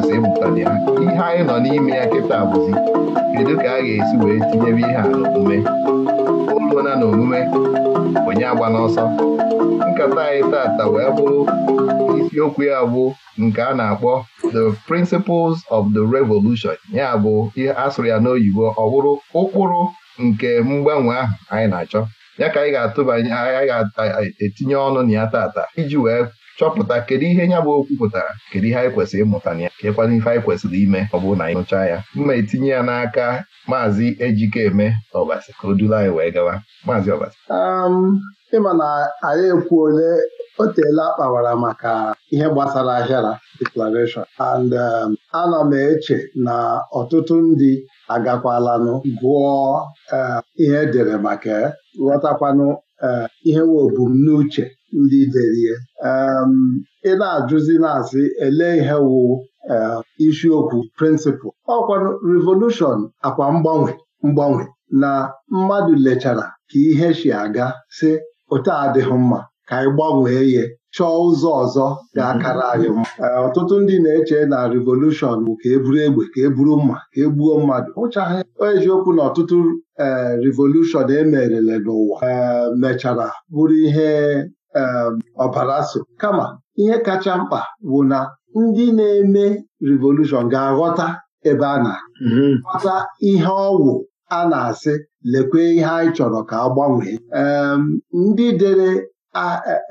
kwesịrị ịmụtali ya ihe anyị nọ n'ime ya kịta bụzi kedu ka a ga-esi wee tinyebe ihe a n'omume olona na omume onye agba n'ọsọ nkata anyị tata wee bụrụ isiokwu ya bụ nke a na-akpọ the principles of the revolution ya bụ asụrụ ya n'oyibo ọ bụrụ ụkpụrụ nke mgbanwe ahụ anyị na-achọ ya ka anyị ga-atụbanye anyị etinye ọnụ na ya tata iji wee chọpụta kedu ihe nya bụ okwu pụtara kedu ihe anyị kwesịrị ịmụta na ya kekwana ife anyị kwesịrị ime ọ bụrụ na anyị nụchaa ya mma etinye ya n'aka maazị Ejikeme Ọbasi ka o duru anyị wee gawa maazị Ọbasi ịma na anyị ekwu ole o teela akpawara maka ihe gbasara ahịara declaration and um, ana m eche na ọtụtụ ndị agakwalanụ gụọ eh, ihe edere maka ghọtakwanụ eh, ihe nwe obumnuche ndị derie um, ị na-ajụzi na-asị ele ihe wụ uh, isiokwu prịnsịpụl ọkwa revolushọn akwa mgbanwe mgbanwe na mmadụ lechara ka ihe si aga si ụta adịghị mma ka anyị gbanwee ya chọọ ụzọ ọzọ ga-akara anyị mma uh, ọtụtụ ndị na-eche na revolushọn bụ ka eburu egbe ka eburu mma ka egbuo mmadụ ụchaghị eziokwu na ọtụtụ uh, revolushọn emerele n'ụwa mechara bụrụ ihe Um, ọbara so kama ihe kacha mkpa bụ na ndị na-eme revolushọn ga-aghọta ebe a na mm-hmm. ghọta ihe ọgwụ a na-asị lekwe ihe anyị chọrọ ka agbanwee. gbanwee um, ndị dere e,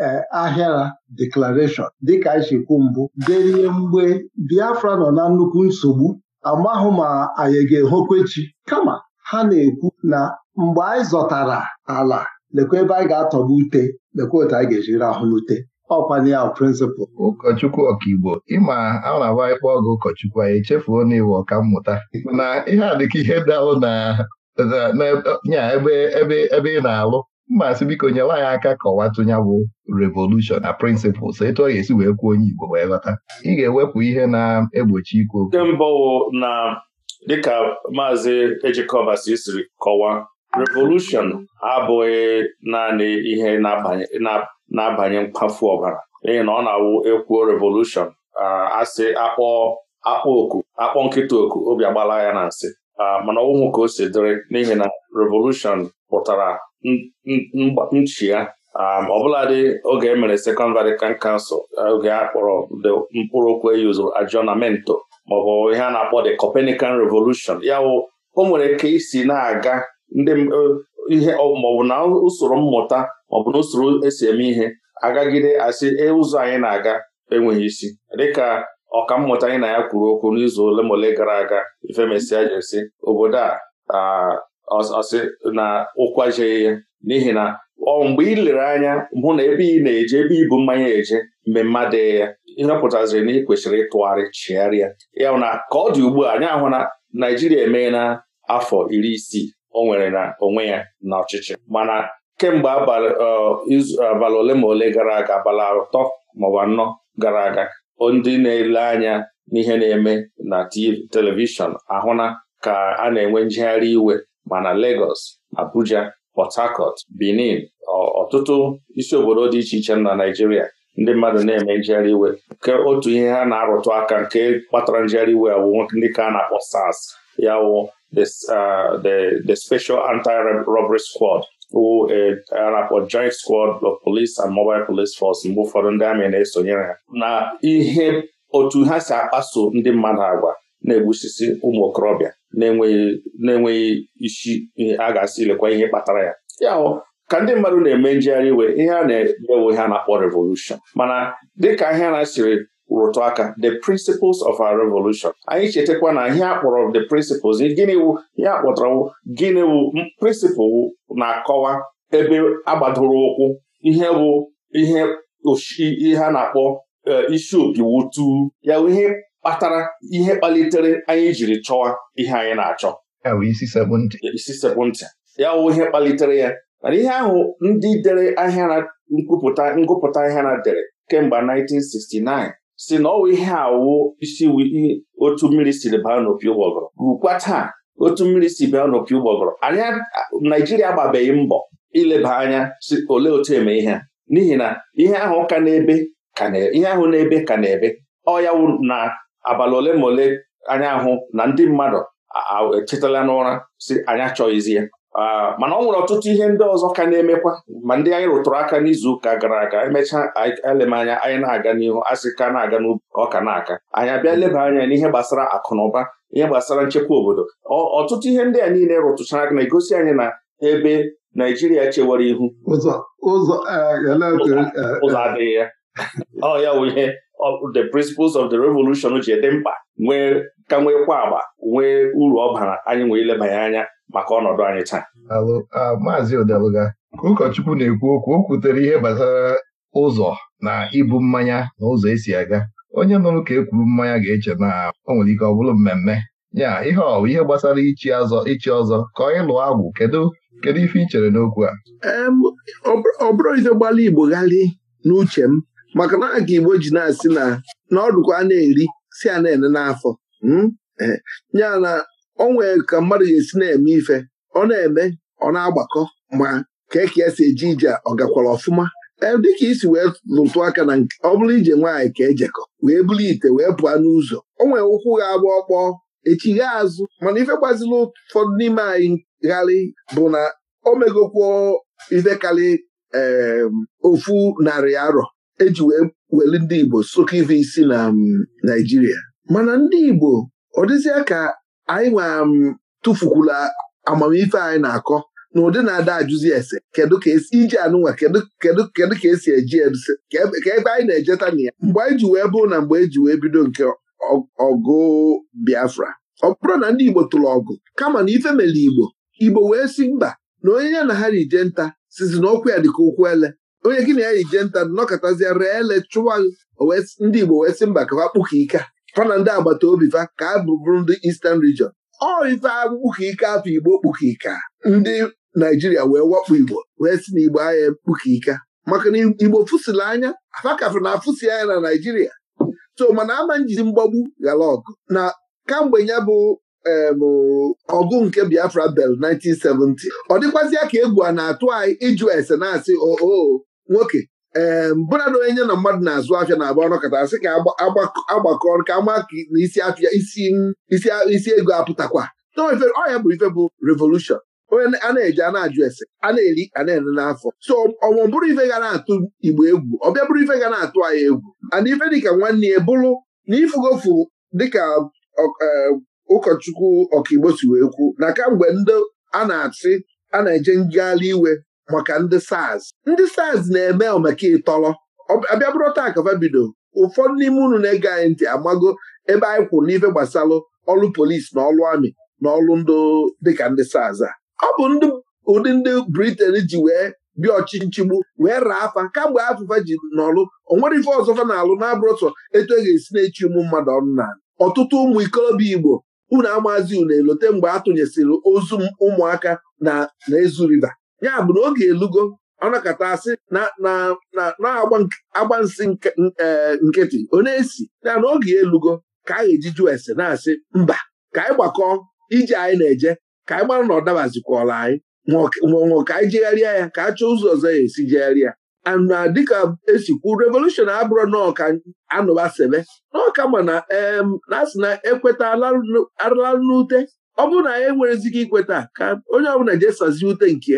e, ahịara deklarashọn dịka nchekwu mbụ derie mgbe Biafra nọ na nnukwu nsogbu amahụ ma anyị ga-ehokwechi kama ha na-ekwu na mgbe anyị zọtara ala lekwa ebe anyị ga-atọgbu ute lekwa otu anyị ga-eji rahụ n'ute ọkwanye ya prịnsịpal ụkọchukwu ọkaigbo ịma a na-agba ịkpọ ọgụ ụkọchukwu anyị echefuo na iwe ọka mmụta na ihe a dịka ihe dalụ na nya ebe ị na-alụ mma sị biko nyere anyị aka kọwatụ ya bụ revolushọn na prịnsịpụls etu ọ ga-esi wee kwuo onye igbo wee ghọta ị ga-ewepụ ihe na-egbochi ikwu okwu nke mbụ na dịka maazị ejikọba sisiri kọwaa revolushon abụghị naanị ihe na-abanye mkpafu ọbara n'ihi na ọ na-awụ ekwuo revolushọn asị akpọ akpọ oku akpọ nkịta oku obi agbala ya na nsị mana ọnwụhụ ka o si dịrị n'ihi na revolushon pụtara nchi ya ọbụladị oge e mere Second Vatican Council oge a kpọrọ mkpụrụ okwu eyuzuru aggiornamento maọbụ ihe a na-akpọ the copenican Revolution ya wụ o nwere ike isi na-aga ndị eh, ihe maọbụ na usoro mmụta maọbụ na usoro esi eme ihe agagide asị e, ụzọ anyị na-aga enweghị isi dịka mmụta anyị na ya kwuru okwu n'izu ole ma ole gara aga ifemesịa jesi obodo a ọsị na ụkwajeghị ya n'ihi na ọ mgbe ị lere anya mbụ na ebe ị na-eje ebe ibu mmanya eje mgbe mmadụ ya ihe pụtaziri na ị kwesịrị ịtụgharị chigharịa ya na ka ọ dị ugbu a anyị ahụ na Naijiria na afọ iri isii o nwere na onwe ya n'ọchịchị mana kemgbe abalị ole ma ole gara aga abalị atọ maọbụ anọ gara aga ndị na-ele anya n'ihe na-eme na telivishọn ahụna ka a na-enwe njegharị iwe mana Lagos Abuja Port Harcourt Benin ọtụtụ isi obodo dị iche iche na Naịjirịa ndị mmadụ na-eme njegharị iwe nke otu ihe ha na-arụtụ aka nke kpatara njegharị iwe awụ ndị ka a na-akpọ SARS ya wụ this uh, the the special anti-robbery squad who uh, a joint squad of police and mobile police force mgbe ụfọdụ ndị amị na-esonyere ya na ihe otu ha si akpaso ndị mmadụ agwa na-egbusisi ụmụ okorobịa na-enweghị isi a ga-asị ilekwa ihe kpatara ya ya ka ndị mmadụ na-eme njegharị iwe ihe a na-emewo ha na-akpọ revolushon mana dịka ihe na-asịrị rụtụ aka the principles of our revolution anyị chetakwa na ihe akpọrọ the principles gịnị wụ ihe akpọtara wụ gịnị wụ na-akọwa ebe agbadoro ụkwụ ihe bụ ihe ihe na-akpọ eh, isi opi wutu ya bụ ihe kpatara ihe kpalitere anyị jiri chọwa ihe anyị na-achọ isi sekpụ ya wụ ihe kpalitere ya ihe ahụ ndị dere ahịa na nkwupụta ngụpụta ahịa na dere kemgbe 1969 si na ọwụ ihe awụ isi otu mmiri siri baa n'opi ụgbọgọrọ rukwa taa otu mmiri si baa n'opi ụgbọgọrọ anyị Naijiria agbabeghị mbọ ileba anya si ole otu eme ihe n'ihi na ihe ahụ ka na-ebe ihe ahụ na-ebe ka na-ebe ọya na abalị ole ma ole anya ahụ na ndị mmadụ echetala n'ụra si anyị achọghịzi ya Ah, mana ọ nwere ọtụtụ ihe ndị ọzọ ka na-emekwa ma ndị anyị rụtụrụ aka n'izu ụka gara aga emechaa elemanya anyị na-aga n'ihu asị ka na-aga n'ọka na-aka anyị abịa leba anya n'ihe gbasara akụ na ụba ihe gbasara nchekwa obodo ọtụtụ ihe ndị a niile rụtụchara aka na-egosi anyị na ebe Naijiria chewara ihu eh, eh, eh. ụzọ adịghị ya ọ ya wụ ihe the principles of the revolution ji dị mkpa nwee ka nweekwa agba nwee uru ọ bara anyị nwee ilebanye anya maka ọnọdụ anyị taa maazị odeluga ka ụkọchukwu na-ekwu okwu o kwutere ihe gbasara ụzọ na ibu mmanya na ụzọ esi aga onye nụrụ ka ekwuru mmanya ga-eche na o nwere ike ọ bụrụ mmemme ya ihe ọ ihe gbasara ichi ọzọ ichi ọzọ ka ọ ịlụ agwụ kedu kedu ife ị chere n'okwu a ọ bụrụ ife igbo ghalị n'uche m maka na ka igbo ji na-asị na na dụkwa na-eri si a na-ene n'afọ hmm? eh, ya na o nwere ka mmadụ ga-esi na-eme ife ọ na-eme ọ na-agbakọ ma ka eke ya si eje ije ọ gakwara ọfụma e, dịka isi wee lụtụ aka na ọ bụrụ ije nwaanyị ka ejekọ wee buru ite wee pụọ n'ụzọ o nwere ụkwụ ga-agba ọkpọ echigha azụ mana ife gbaziri ụfọdụ n'ime anyị gharị bụ na o megokwo ife karị ofu narị arọ eji wee weli ndị Igbo sokọ ife isi na Naịjirịa mana ndị Igbo ọ dịzịa ka anyị nwe um, tụfukwula amamife anyị na-akọ na ụdị na-ada ajụzi ese kedu ka esi iji anụnwa kedu kedu ka esi eji eduse ka ebe anyị na-ejeta na ya mgbe anyị ji wee bụrụ na mgbe eji wee bido nke ọgụ Biafra ọ bụrụ na ndị Igbo tụrụ ọgụ kama na ife mere Igbo Igbo wee si mba na onye ya na ha rije nta sizi na ọkwụ ya dịka ụkwụ ele onye gị na ya rije nta nọkọtazia ree ele chụwa ndị Igbo wee si mba ka ha kpụka ike fa na ndị agbata obi fa ka a ndị Eastern Region ọ ife akpụkọ ike afọ Igbo kpụkọ ike ndị Naijiria wee wakpo Igbo wee si na Igbo ahịa kpụkọ ike maka na Igbo fụsịrị anya afakafụ na afụsi anya na Naijiria so mana ama njizi mgbagbu ghara ọgụ na kamgbe ya bụ ọgụ nke Biafra bel 1970 ọ dịkwazịa ka egwu a na-atụ anyị ịjụ ese na-asị oo oh, oh, nwoke ee mbụra na onye na mmadụ na-azụ afịa na-abụ ọnọkọta asị ka agbakọ ka ama ka isi afịa isi ego apụtakwa ọya ya bụ ife bụ revolushọn onye a na-eji a na-ajụ ese a na-eri a na-ere n'afọ so ọmụ bụrụ ife ga na-atụ igbo egwu ọbịa bụrụ ife ga na-atụ anyị egwu ana ife dịka nwanne ya bụrụ na ifugofu dịka ụkọchukwu ọkaigbo si wee kwu na kamgbe ndị a na achị a na-eje ngagharị iwe maka ndị SARS ndị SARS na-eme maka ịtọrọ abịa bụrụ taa ka ụfọdụ n'ime unu na-ege anyị ntị amago ebe anyị kwụ n'ife gbasara ọrụ polisi na ọrụ amị na ọrụ ndụ dịka ndị SARS a ọ bụ ụdị ndị Briten ji wee bịa ọchịchịgbu wee raa afa kamgbe afụfa ji n'ọrụ onwere ife ọzọfa na-alụ na-abụrụ sọ etu e ga-esi na-echi ụmụ mmadụ ọnụ na ọtụtụ ụmụ ikolobịa Igbo unu amazi unu elote mgbe ha tụnyesịrị ozu ụmụaka na-ezu riva ya na oge elugo ọnakata asị na-agba nsị e, nkịtị onye si ya na oge elugo ka a ga-eji jụọ ese na-asị mba ka anyị gbakọọ ije anyị na-eje ka anyị gbara na ọ dabazikwala anyị nwụọ ka anyị jegharịa ya ka a chọọ ụzọ ọzọ ya esi jegharịa na dịka esikwu revolushon abụrụ n'ọka anụba sebe n'ọka mana na asị na ekweta arụla n'ute ọ bụrụ na anyị e enwerezighị ikweta ka onye ọbụla jee sazie ute nke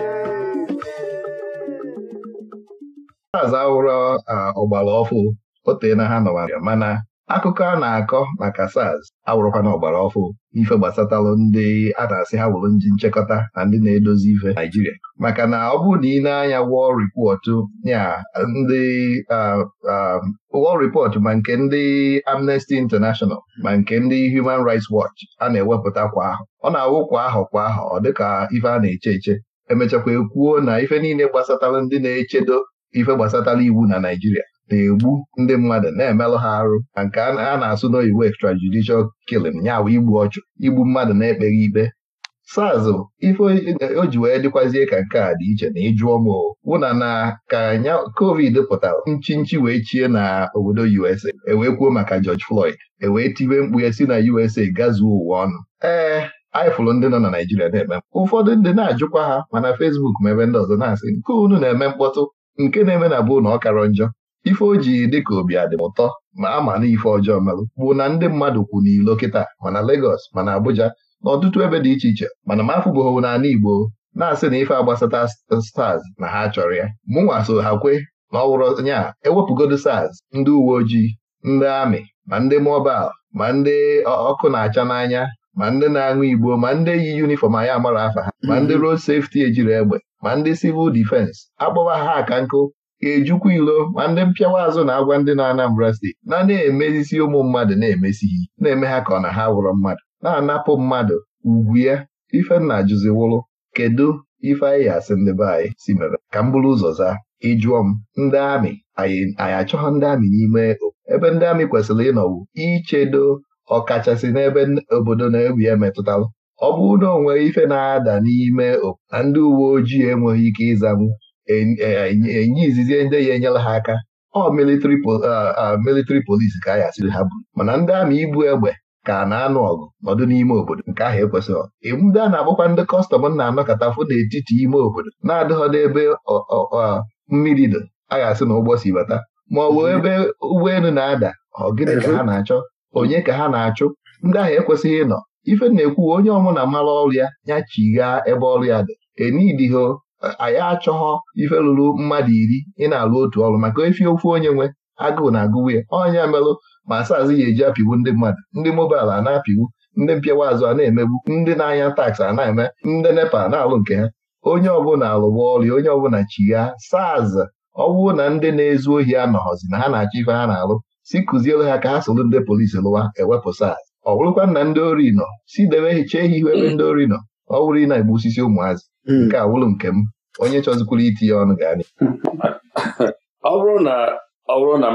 aza wụrụ ọgbara ọfụ otee na ha nọwara mana akụkọ a na-akọ maka SARS awụrụkwana ọgbara ọfụ ife gbasatalụ ndị a na-asị ha wụrụ ndị nchekọta na ndị na-edozi ife Naijiria maka na ọ bụrụ na ị na-anya wọl ripọt ya ndị wọl ma nke ndị Amnesty International ma nke ndị Human Rights Watch a na-ewepụta kwa ahụ, ọ na-awụ kwa ahụ kwa ahụ ọ dịka ife a na-eche eche emechakwa ekwuo na ife niile gbasatara ndị na-echedo ife gbasatara iwu na Naijiria na-egbu ndị mmadụ na-emelụ ha arụ na nke a na-asụ n'oyiwu extrajudicial kilin ya igbu ọchụ igbu mmadụ na-ekpeghị ikpe SARS ife o ji wee dịkwazie ka nke a dị iche na ịjụọ m wụna na ka nya covid pụtara nchinchi wee chie na obodo USA ewee kwuo maka George Floyd ewee tibe mkpu ya si na USA gazuo ụwa ọnụ ee anyị ndị nọ na Naijiria na-eme ụfọdụ ndị na-ajụkwa ha mana Facebook ma ebe ndị ọzọ na-asị nke unu na-eme mkpọtụ nke na-eme na bụ na ọ karọ njọ ife o ji dịka obi adị m ụtọ ma a ma na ife ọjọọ merụ bụ na ndị mmadụ kwu n'ilo kịta mana Lagos mana Abuja na ọtụtụ ebe dị iche iche mana m afụbụghị n'ala Igbo na-asị na ife agbasata stars na ha chọrọ ya mụnwa so ha kwe na ọ wụrụ nya ewepụgodo stars ndị uwe ojii ndị amị ma ndị mọbal ma ndị ọkụ na-acha n'anya ma ndị na-aṅụ igbo ma ndị yi yunifọm anyị amara afa ha ma ndị mhm. rod sefti ejiri egbe ma ndị sivụl defense akpọwa ha aka nkụ ejukwa ilo ma ndị mpịawa azụ na-agwa ndị na-Anambra steeti na na-emezisi ụmụ mmadụ na-emesighị na-eme ha ka ọ na ha wụrụ mmadụ na-anapụ mmadụ ugwu ya ifenna jụziwụrụ kedu ife anyị asị ndị be anyị si mere ka m bụrụ ụzọ zaa ịjụọ m ndị amị anyị achọghị ndị amị n'ime ebe ndị amị kwesịrị ịnọwu ichedo ọkachasị n'ebe obodo na-egwu ya ọ bụrụ na ọ nwere ife na-ada n'ime na ndị uwe ojii enweghị ike ịzanwu enye izizi ndị ya enyela ha aka ọ militrị polisi ka a ya asịrị ha buru mana ndị amị ibu egbe ka na-anụ ọgụ nọdụ n'ime obodo nke ahụ ekwesịghị ndị a na-agbakwa ndị kọstọm na anọkọtafụ n'etiti ime obodo na-adịghọ ebe mmiri dị a ga-asị na ụgbọ si bata ma ọ bụ ebe ụgbọelu na-ada ọ gịnị ka ha na-achọ onye ka ha na-achụ ndị ahụ ekwesịghị ịnọ ife na-ekwu onye ọmụna mara ọrụ ya ya chighaa ebe ọrụ ya dị enidiho anyị achọghọ ife lụrụ mmadụ iri ị na-alụ otu ọrụ maka efi ofu onye nwe agụụ na agụwe ọnya merụ ma asazi ya eji apịwu ndị mmadụ ndị mobail a na apịwu ndị mpịawa azụ a na-emegbu ndị na-anya taksị a na-eme ndị nepa na-alụ nke ha onye ọbụla alụgba ọrịa onye ọbụla chighaa saz ọ bụrụ na ndị na-ezu ohi anọghọzi na ha na-achọ ife ha na-alụ si kụzielu ha ka ha solu ndị polisi lụwa ewepụ SARS ọ bụrụkwa na ndị ori nọ si debe hicha ehi ihu ebe mm. ndị ori nọ ọ wụrụ ị na-egbu osisi ụmụazị mm. nke a wụrụ nke m onye chọzikwuru itinye ọnụ ga ọ bụrụ na ọ bụrụ na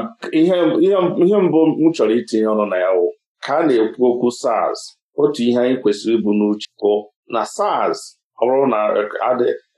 ihe mbụ m chọrọ itinye ọnụ na ya wụ ka a na-ekwu okwu SARS otu ihe anyị kwesịrị ịbụ n'uche bụ na SARS ọ bụrụ na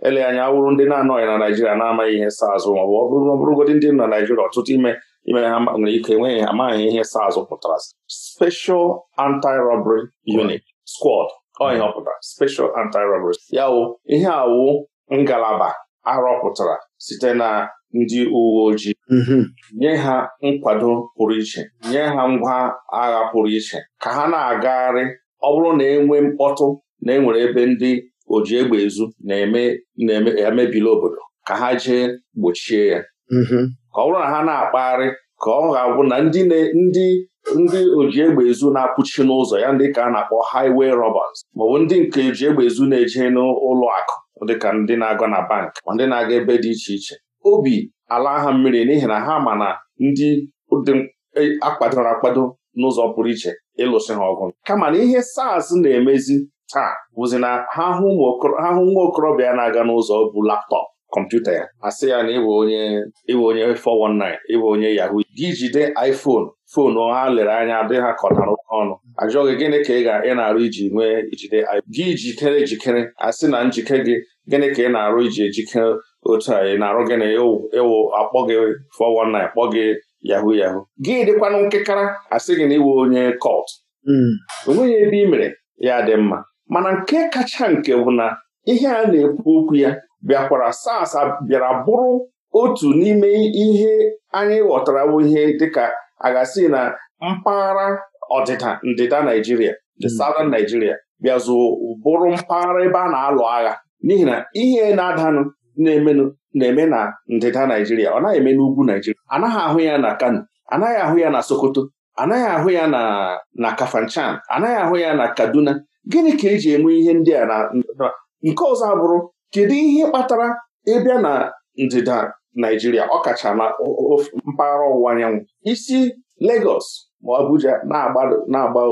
ele anya awụrụ ndị na-anọghị na Naijiria na-amaghị ihe SARS ma ọ bụrụgodị ndị nọ na Naijiria ọtụtụ ime ime ha nwere ike enweghị amaghị ihe SARS pụtara Special Anti-Robbery Unit Squad ọhịa pụtara Special Anti-Robbery ya wụ ihe awụ ngalaba arọpụtara site na ndị uwe ojii mm-hmm. nye ha nkwado pụrụ iche nye ha ngwa agha pụrụ iche ka ha na-agagharị ọ bụrụ na enwe mkpọtụ na enwere ebe ndị oji egbe ezu na-emebili obodo ka ha jee gbochie ya mm-hmm. ọ bụrụ na ha na-akpagharị ka ọ ga-abụ na ndị ndị ndị oji egbe ezu na-apụchi n'ụzọ ya ndị ka a na-akpọ highway robbers maọbụ ndị nke oji egbe ezu na-eje n'ụlọ akụ dịka ndị na-aga na bank ma ndị na-aga ebe dị iche iche obi ala ha mmiri n'ihi na ha ma na ndị dị e, akpadoro akpado n'ụzọ pụrụ iche ịlụsị ha ọgụ kama na ihe SARS na-emezi taa bụzi na ha hụ nwa okorobịa na-aga n'ụzọ bụ laptọpụ kọmputa ya asị ya na ịbụ onye ịbụ onye 419 ịbụ onye yahoo gị jide iPhone foonu ha lere anya dị ha kọtara ọnụ ajụghị gịnị ka ị ga ị na-arụ iji nwee ijide gị jikere ejikere asị na njike gị gịnị ka ị na-arụ iji ejikere otu a ị na-arụ gị na ịwụ akpọ gị 419 kpọ gị yahoo yahoo gị dịkwanụ nkekara asị gị na ịwụ onye kọt hmm. o nweghị ebe ị mere ya dị mma mana nke kacha nke bụ na ihe a na-ekwu okwu ya bịakwara SARS bịara bụrụ otu n'ime ihe anyị ghọtara ihe dịka aghasi na mpaghara ọdịda ndịda Naijiria the hmm. Southern Nigeria bịazụ bụrụ mpaghara ebe a na-alụ agha n'ihi na ihe na-adanụ na na-eme na ndịda Naijiria ọ naghị eme n'ugwu Naijiria anaghị ahụ ya na Kano anaghị ahụ ya na Sokoto anaghị ahụ ya na Kafanchan anaghị ahụ ya na Kaduna gịnị ka eji enwe ihe ndị a na nke ọzọ abụrụ kedu ihe kpatara ịbịa na ndịda Naijiria ọkacha na mpaghara ọwụwa anyanwụ isi legos ma Abuja na-agba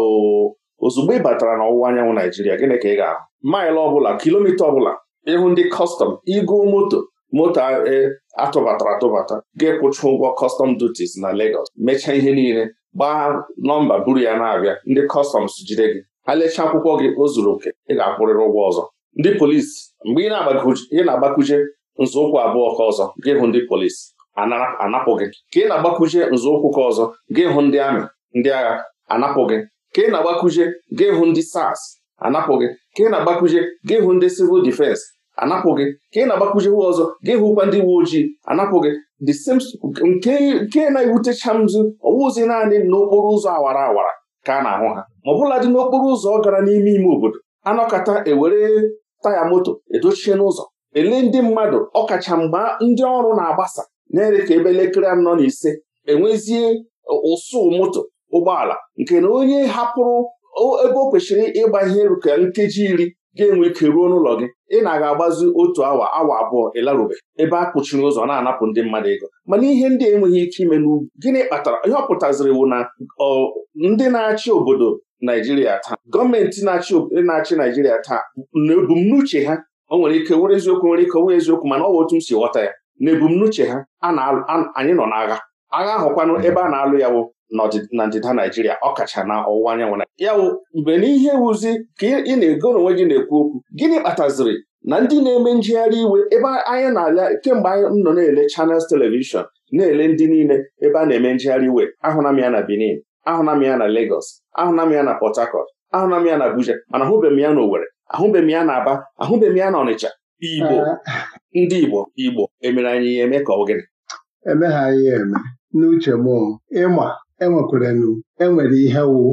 ozugbo ị batara n'ọwụwa anyanwụ Naijiria gịnị ka ị ga-ahụ maịlụ ọbụla kilomita ọbụla ịhụ ndị kọstọm ịgụ moto moto e, atụbatara atụbata ga-ekwụchi ụgwọ kọstọm duties na legos. mechaa ihe niile gbaa nọmba buru ya na-abịa ndị kọstọms jide gị ha lechaa akwụkwọ gị o zuru oke ị ga-akwụrịrị ụgwọ ọzọ ndị polisi mgbe ị na-agbakuje nzọụkwụ abụọ ka ọzọ gị hụ ndị polisi anapụ gị ka ị na-agbakuje nzọụkwụ ka ọzọ gị hụ ndị amị ndị agha anapụ gị ka ị na-agbakuje gị hụ ndị sars anapụ gị ka ị na-agbakuje gị hụ ndị sivil difensi anapụ gị ka ị na-agbakuje hụ ọzọ gị hụkwa ndị uwe ojii anapụ gị the same nke na-ewutecha mzu ọwụzi naanị n'okporo ụzọ awara awara ka a na-ahụ ha ma ọ bụla dị n'okporo ụzọ gara n'ime ime obodo anọkọta ewere taya moto edochie n'ụzọ ele ndị mmadụ ọkacha mgbe ndị ọrụ na-agbasa na-ere ka ebe elekere anọ na ise enwezie ụsụ moto ụgbọala nke na onye hapụrụ ebe o kwesịrị ịgba ihe ka nkeji iri ga-enwe ike ruo n'ụlọ gị ị na-aga agbazi otu awa awa abụọ ịlarube ebe a kpuchiri ụzọ na-anapụ ndị mmadụ ego mana ihe ndị enweghị ike ime n'ugwu gịnị kpatara ihe ọ pụtaziri na ndị na-achị obodo Naijiria taa gọọmenti na-achị Naijiria taa na ebumnuche ha o nwere ike were eziokwu nwere ike wee eziokwu mana ọ bụ otu m si ghọta ya na ebumnuche ha anyị nọ n'agha agha ahụkwanụ ebe a na-alụ ya bụ na ndịda Naijiria ọkacha na ọwụwa anyanwụ ya wụ mgbe n'ihe wuzi ka ị na-ego n'onwe gị na-ekwu okwu gịnị kpataziri na ndị na-eme njegharị iwe ebe anyị na-ala kemgbe anyị nọ na-ele chanels telivishọn na-ele ndị niile ebe a na-eme njegharị iwe ahụla m ya na Benin ahụna m ya na Lagos ahụna m ya na Port Harcourt ahụna m ya na Abuja mana ahụbeghị ya na Owerri ahụbeghị ya na Aba ahụbeghị ya na Ọnịcha Igbo ndị Igbo Igbo emere anyị ya eme ka ọ gịnị emeghaghị ya eme n'uche m ịma enwekwarenu enwere ihe wu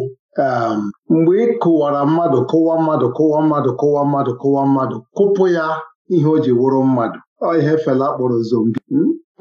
um, mgbe ị kụwara mmadụ kụwa mmadụ kụwa mmadụ kụwa mmadụ kụwa mmadụ kụpụ ya ihe o ji wụrụ mmadụ ọ ihe fela kpọrọ zombi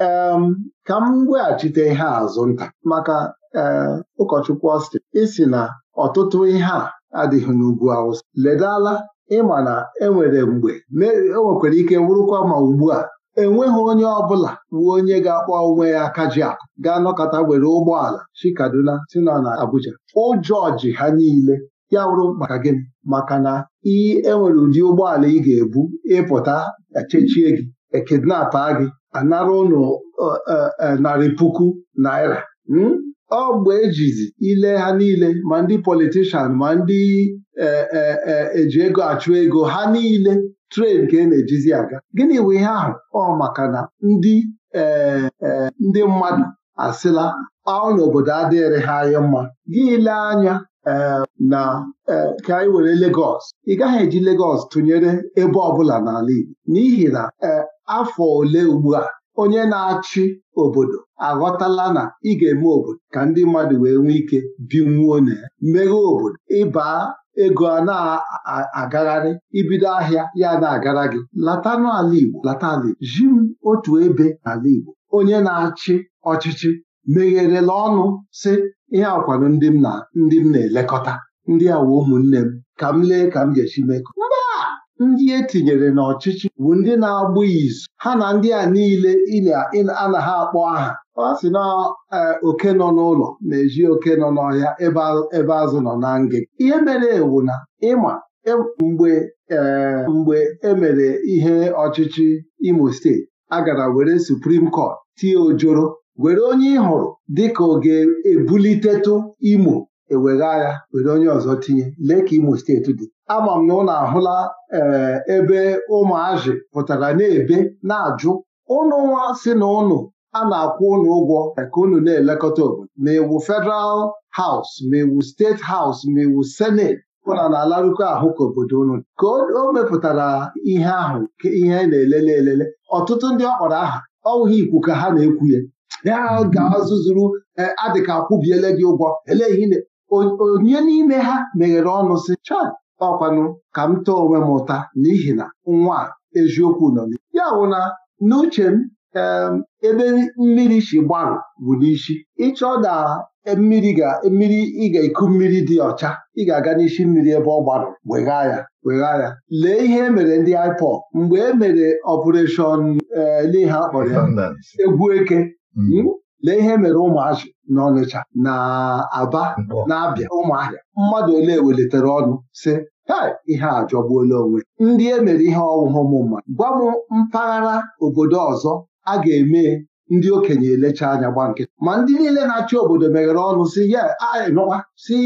um, ka m weghachite ihe azụ nta maka ee eh, ụkọchukwu ọsti isi na ọtụtụ ihe a adịghị n'ugwu awụsa ledala ịma na enwere mgbe o e nwekwara ike wụrụkwa ma ugbu a enweghị onye ọbụla bụ onye ga-akpọ onwe ya akaji akụ ga-anọkọta were ụgbọala si Kaduna si na Abuja ụjọ ji ha niile ya wụrụ maka gịnị maka na ị enwere ụdị ụgbọala ị ga-ebu ịpụta echechie gị ekidnapa gị anara ụnụ eh, eh, narị puku naira hmm? ọ bụ ejizi ile ha niile ma ndị politishan ma ndị e, e, e, eji ego achụ ego ha niile tren ka e na-ejizi aga gịnị bụ ihe ahụ ọ maka na ndị ndị mmadụ asịla ọ n'obodo adịghịrị ha anya mma gị ile anya na ka anyị were Legọs ị gaghị eji Legọs tụnyere ebe ọbụla n'ala Igbo n'ihi na afọ ole ugbu a onye na-achị obodo aghọtala na ị ga-eme obodo ka ndị mmadụ wee nwee ike binwuo na ya meghe obodo ịba ego a na-agagharị ibido ahịa ya na-agara gị latanụ ala Igbo lata ala Igbo ji m otu ebe ala Igbo onye na-achị ọchịchị megherela ọnụ sị ihe akwado ndị m na ndị m na-elekọta ndị awa ụmụnne m ka m lee ka m ga-esi mekọ ndị e tinyere n'ọchịchị bụ ndị na-agbụ izu ha na ndị a niile anaghị akpọ aha ọ sị na e, oke nọ n'ụlọ na-eji oke nọ n'ọhịa ebe azụ nọ na ngị ihe mere ewu na ịma e, mgbe e, mgbe emere ihe ọchịchị Imo steeti agara were Supreme Court tie ojoro were onye ị hụrụ dịka ọ ga-ebulitetu Imo ewegha agha were onye ọzọ tinye lee ka Imo steeti dị ama m na ụnụ ahụla eh, ebe ụmụazị pụtara na-ebe na-ajụ ụnụ nwa si na ụnụ a na-akwụ ụnụ ụgwọ eh, ka ụnụ na-elekọta obodo ma iwu e Federal House ma iwu e steeti House ma iwu e senet ụna na-alarụkọ ahụ ka obodo ụnụ ka o mepụtara ihe ahụ ihe na-elele elele ọtụtụ ndị ọ kpọrọ aha ọwụghị ikwu ka ha na-ekwu ya ya ga-azụzuru eh, adịka akwụbiele gị ụgwọ ele ihe onye n'ime ha meghere ọnụ sị cha ọkwanụ ka m too onwe m ụta n'ihi na nwa eziokwu nọ ya wụ na n'uche m ebe mmiri si gbarụ bụ n'isi ịchọ na mmiri ga mmiri ị ga-eku mmiri dị ọcha ị ga-aga n'isi mmiri ebe ọ gbarụ wegha ya wegha ya lee ihe emere ndị IPO mgbe e mere ọpụreshọn ee akpọrọ ya egwu eke mm. hmm? lee ihe mere ụmụazị na Ọnịcha na Aba na-abịa ụmụahịa mmadụ ole welitere ọnụ si ihe a jọgbuola onwe ndị e mere ihe ọghụghụ m mmadụ gwa m mpaghara obodo ọzọ a ga-eme ndị okenye elecha anya gba nkịtị ma ndị niile na-achị obodo meghere ọnụ si ya si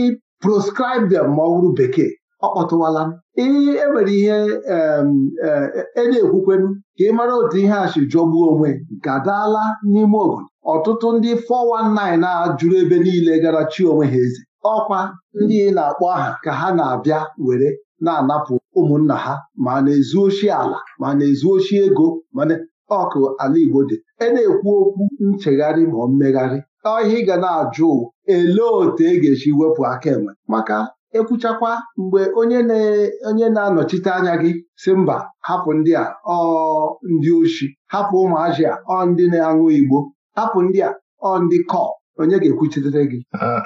proscribe them ma ọ bụrụ bekee ọ kpọtụwala m e ihe enwere ihe e, e na-ekwukwenu ka ị mara otu ihe a si jọgbuo onwe nke adaala n'ime obodo ọtụtụ ndị 419 a ajụrụ ebe niile gara chi onwe ha eze ọkwa ndị na-akpọ aha ka ha na-abịa were na-anapụ ụmụnna ha ma na-ezu oshi ala ma na-ezu oshi ego mana ọkụ ala Igbo dị e na-ekwu okwu nchegharị ma mmegharị ọ ihe ị ga na-ajụ elee otu e ga-esi wepụ aka enwe maka ekwuchakwa mgbe onye na-anọchite anya gị si mba hapụ ndị a ọ ndị oshi hapụ ụmụazị a ọ ndị na-aṅụ igbo hapụ ndị a ọ ndị kọp onye ga-ekwuchitere gị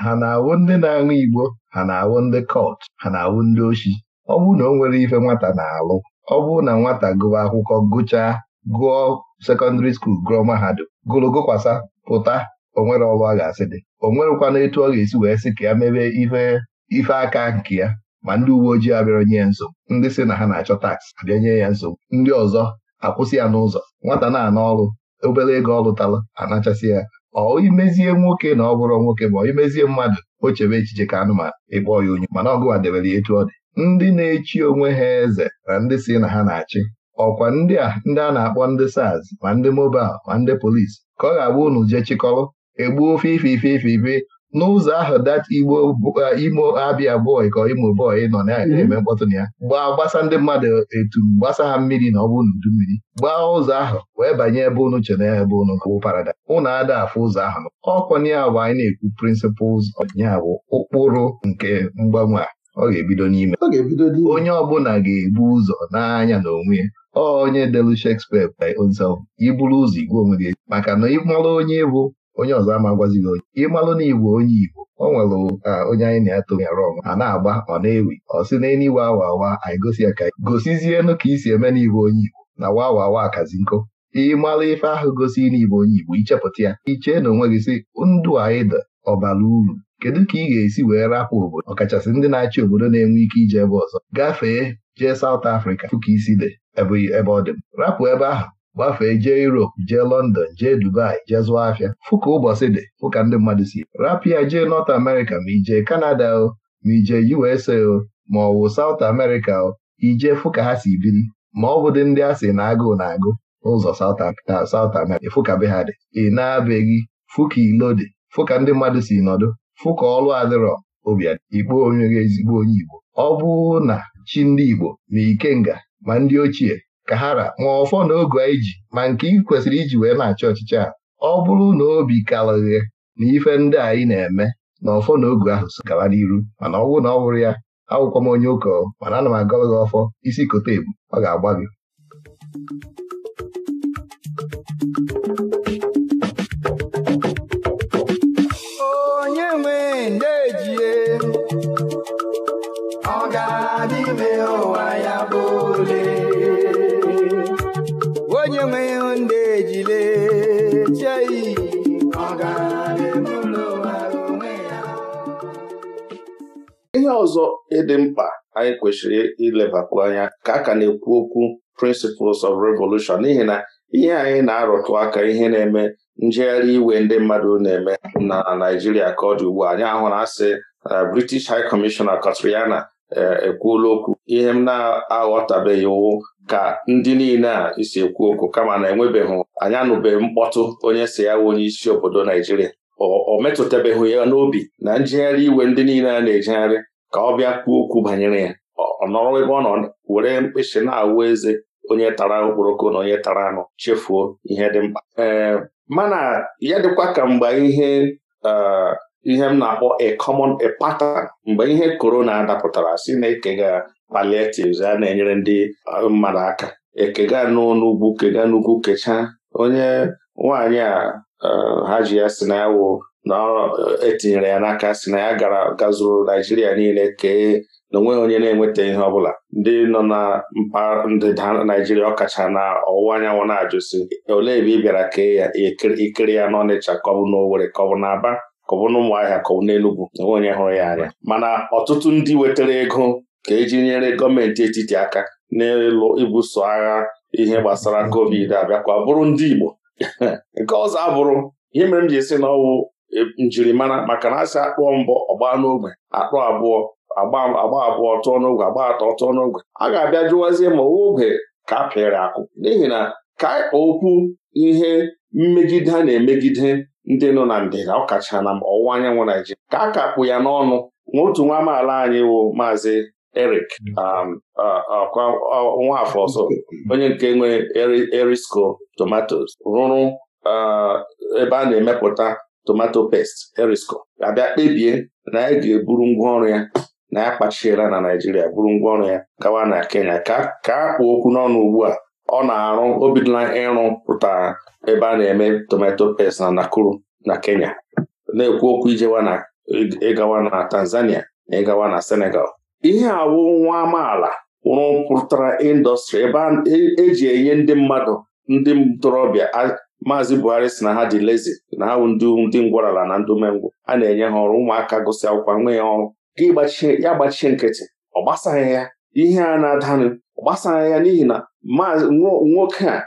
ha na-awụ ndị na-aṅụ igbo ha na-awụ ndị kọt ha na-awụ ndị oshi ọ bụrụ na o nwere ife nwata na-alụ ọ bụrụ na nwata gụwa akwụkwọ gụchaa gụọ sekọndịrị skuul gụọ mahadum gụrụ gụkwasa pụta onwere ọrụ ga-asị dị o nwerekwana etu ọ ga-esi wee sị ka ya mebe ihe ife aka nke ya ma ndị uwe ojii abịara nye ya nsogbu ndị si na ha na-achọ taks abịa nye ya nsogbu ndị ọzọ akwụsị ya n'ụzọ nwata na-ana ọrụ obere ego ọ anachasị ya ọ imezie nwoke na ọ bụrụ nwoke ma ọ imezie mmadụ o chebe echiche ka anụmanụ ịkpọ ya onye mana ọgụwa debere ya etu ọ dị ndị na-echi onwe ha eze na ndị si na ha na-achị ọkwa ndị a ndị a na-akpọ ndị SARS ma ndị mobal ma ndị polis ka ọ ga-abụ unu jee chịkọrọ egbuo ofe ife ife ife ife n'ụzọ ahụ dat igbo uh, imo abịa bọị ka imo bọị nọ mhm. na-eme mkpọtụ na ya gbaa gbasa ndị mmadụ etu gbasa ha mmiri na ọ bụ n'udu mmiri gbaa ụzọ ahụ wee banye ebe unu chere ya ebe unu bụ parada unu ada afụ ụzọ ahụ ọkwanye bụ anyị na-ekwu prịnsịpụls ya bụ ụkpụrụ nke mgbanwe a ọ ga-ebido n'ime onye ọbụla ga-ebu ụzọ n'anya na onwe ya onye delu Shakespeare by iburu ụzọ igwe onwe gị maka na ịmara onye bụ onye ọzọ ama gwazi gị onye ịmalụ na igbo onye igbo ọ nwere onye anyị na eto arụ ọnwa a na-agba ọ na-ewi ọ sị na elu awa awa anyị gosi ya ka gosizienụ ka isi eme n'igbo onye igbo na wa awa awa akazi nkụ ịmalụ ife ahụ gosi n'igbo onye igbo ichepụta ya ichee na onwe gị sị ndụ anyị ọbara uru kedu ka ị ga-esi wee rapụ obodo ọkachasị ndị na-achị obodo na-enwe ike ije ebe ọzọ gafee jee South afrịka fụ isi dị ebe ọ dị m rapụ ebe ahụ gbafee jee Europe jee London jee Dubai jee zụọ afịa fụka ụbọchị dị fụka ndị mmadụ si rapịa jee North America ma ijee Canada o ma ijee USA o ma ọ wụ South America o ijee fụka ha si biri ma ọ dị ndị a sị na agụụ na agụ n'ụzọ South America fụka be ha dị ị na-abeghị fụka ilo dị fụka ndị mmadụ si nọdụ fụka ọlụ adịrọ obiad ikpo onye ezigbo onye Igbo ọ bụ na chi ndị Igbo na Ikenga ma ndị ochie ka ha ra ma ọfọ na ogu anyị ji ma nke ị kwesịrị iji wee na-achị ọchịchị a ọ bụrụ na obi karịghị na ife ndị anyị na-eme na ọfọ na ogu ahụ so gara n'iru mana ọ bụrụ na ọ bụrụ ya awụkwa m onye ụkọ mana ana m agọrọ gị ọfọ isi kote ebu ọ ga-agba gị ọzọ ịdị mkpa anyị kwesịrị ilebakwu anya ka a ka na-ekwu okwu Principles of Revolution n'ihi na ihe anyị na-arụtụ aka ihe na-eme njegharị iwe ndị mmadụ na-eme na Naijiria ka ọ dị ugbu a anyị ahụ na asị na ah, British High Commissioner Katriana eh, ekwuola okwu ihe m na-aghọtabeghị iwu ka ndị niile a isi ekwu okwu kama na enwebeghị anyị anụbeghị mkpọtụ onye si ya wụ onye isi obodo Naijiria o metụtabeghị ya n'obi na njegharị iwe ndị niile a na-ejegharị ka ọ bịa kwuo okwu banyere ya ọ nọrọ ebe ọ nọ were mkpịsị na-awụ eze onye tara okporoko na onye tara anụ chefuo ihe dị mkpa mana ya dịkwa ka mgbe ihe ihe m na-akpọ a common a pattern mgbe ihe korona dapụtara si na ekega palliatives a na-enyere ndị mmadụ aka ekega n'ugwu kega n'ugwu kechaa onye nwaanyị a ha ji ya si na ya wụ na etinyere ya n'aka si na ya gara gazuru Naijiria niile kee na onweghị onye na-enweta ihe ọbụla ndị nọ na mpaghara ndịda Naijiria ọkacha na ọwụwa anyanwụ na-ajụsi olee ebe ị bịara kee ya ikiri ya n'Ọnịcha kọbụ n'Owerri kọbụ n'Aba kọbụ n'Ụmụahịa kọbụ n'Enugwu onwe onye hụrụ ya anya mana ọtụtụ ndị wetara ego ka eji nyere gọọmenti etiti aka n'elu ibuso agha ihe gbasara covid abịakwa bụrụ ndị Igbo nke ọzọ abụrụ ihe mere m ji esi na ọwụ E, njirimara maka na asị akpụọ mbọ ọgba n'ogbe akpụ abụọ agba abụọ tụọ n'ogwe agba atọ tụọ n'ogwe a ga-abịa jụwazie ma ogbe ka a akụ n'ihi na ka okwu ihe mmegide a na-emegide ndị nọ na ndịda ọkacha na ọwụwa anyanwụ Naijiria ka a kakpụ ya n'ọnụ nwa otu nwa amaala anyị wụ maazị Eric um, Nwafọ ọzọ onye nke nwe Erisco tomatoes rụrụ ebe a na-emepụta tomato paste erisco abịa kpebie na ya ga-eburu ngwaọrụ ya na ya kpachiela na Naijiria buru ngwaọrụ ya gawa na Kenya ka ka a okwu n'ọnụ ugbu a ọ na-arụ o bidola ịrụ pụtara ebe a na-eme tomato pest na Nakuru na Kenya na-ekwu okwu ijewa na ịgawa na Tanzania na ịgawa na Senegal ihe awụ nwa amaala rụpụtara indọstrị ebe eji e enye ndị mmadụ ndị ntorobịa Maazị Buhari si na ha dị lezi na ha ndị ngwarala na ndị umengwụ a na-enye ha ọrụ ụmụaka gụsị akwụkwọ nwee ya ọrụ ya gbachie nkịtị ọ gbasaghị ya ihe a na-adanụ ọ gbasaghị ya n'ihi na nwoke a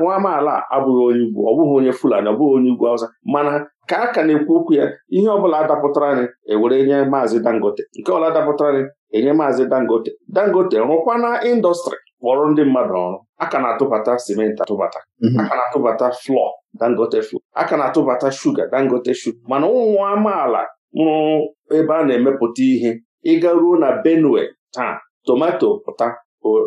nwa amaala abụghị onye ugwu ọ bụghị onye Fulani ọ bụghị onye ugwu Hausa mana ka a ka na-ekwu okwu ya ihe ọbụla adapụtara anyị ewere nye Maazị Dangote nke ọla adapụtara anyị enye Maazị Dangote Dangote na indọstrị kpọrọ ndị mmadụ ọrụ aka na-atụbata simenti atụbata mhm. aka na-atụbata flọ dangote flọ aka na-atụbata shuga dangote shuga mana ụmụ amaala mụrụ ebe a na-emepụta ihe ịga ruo na benue taa tomato pụta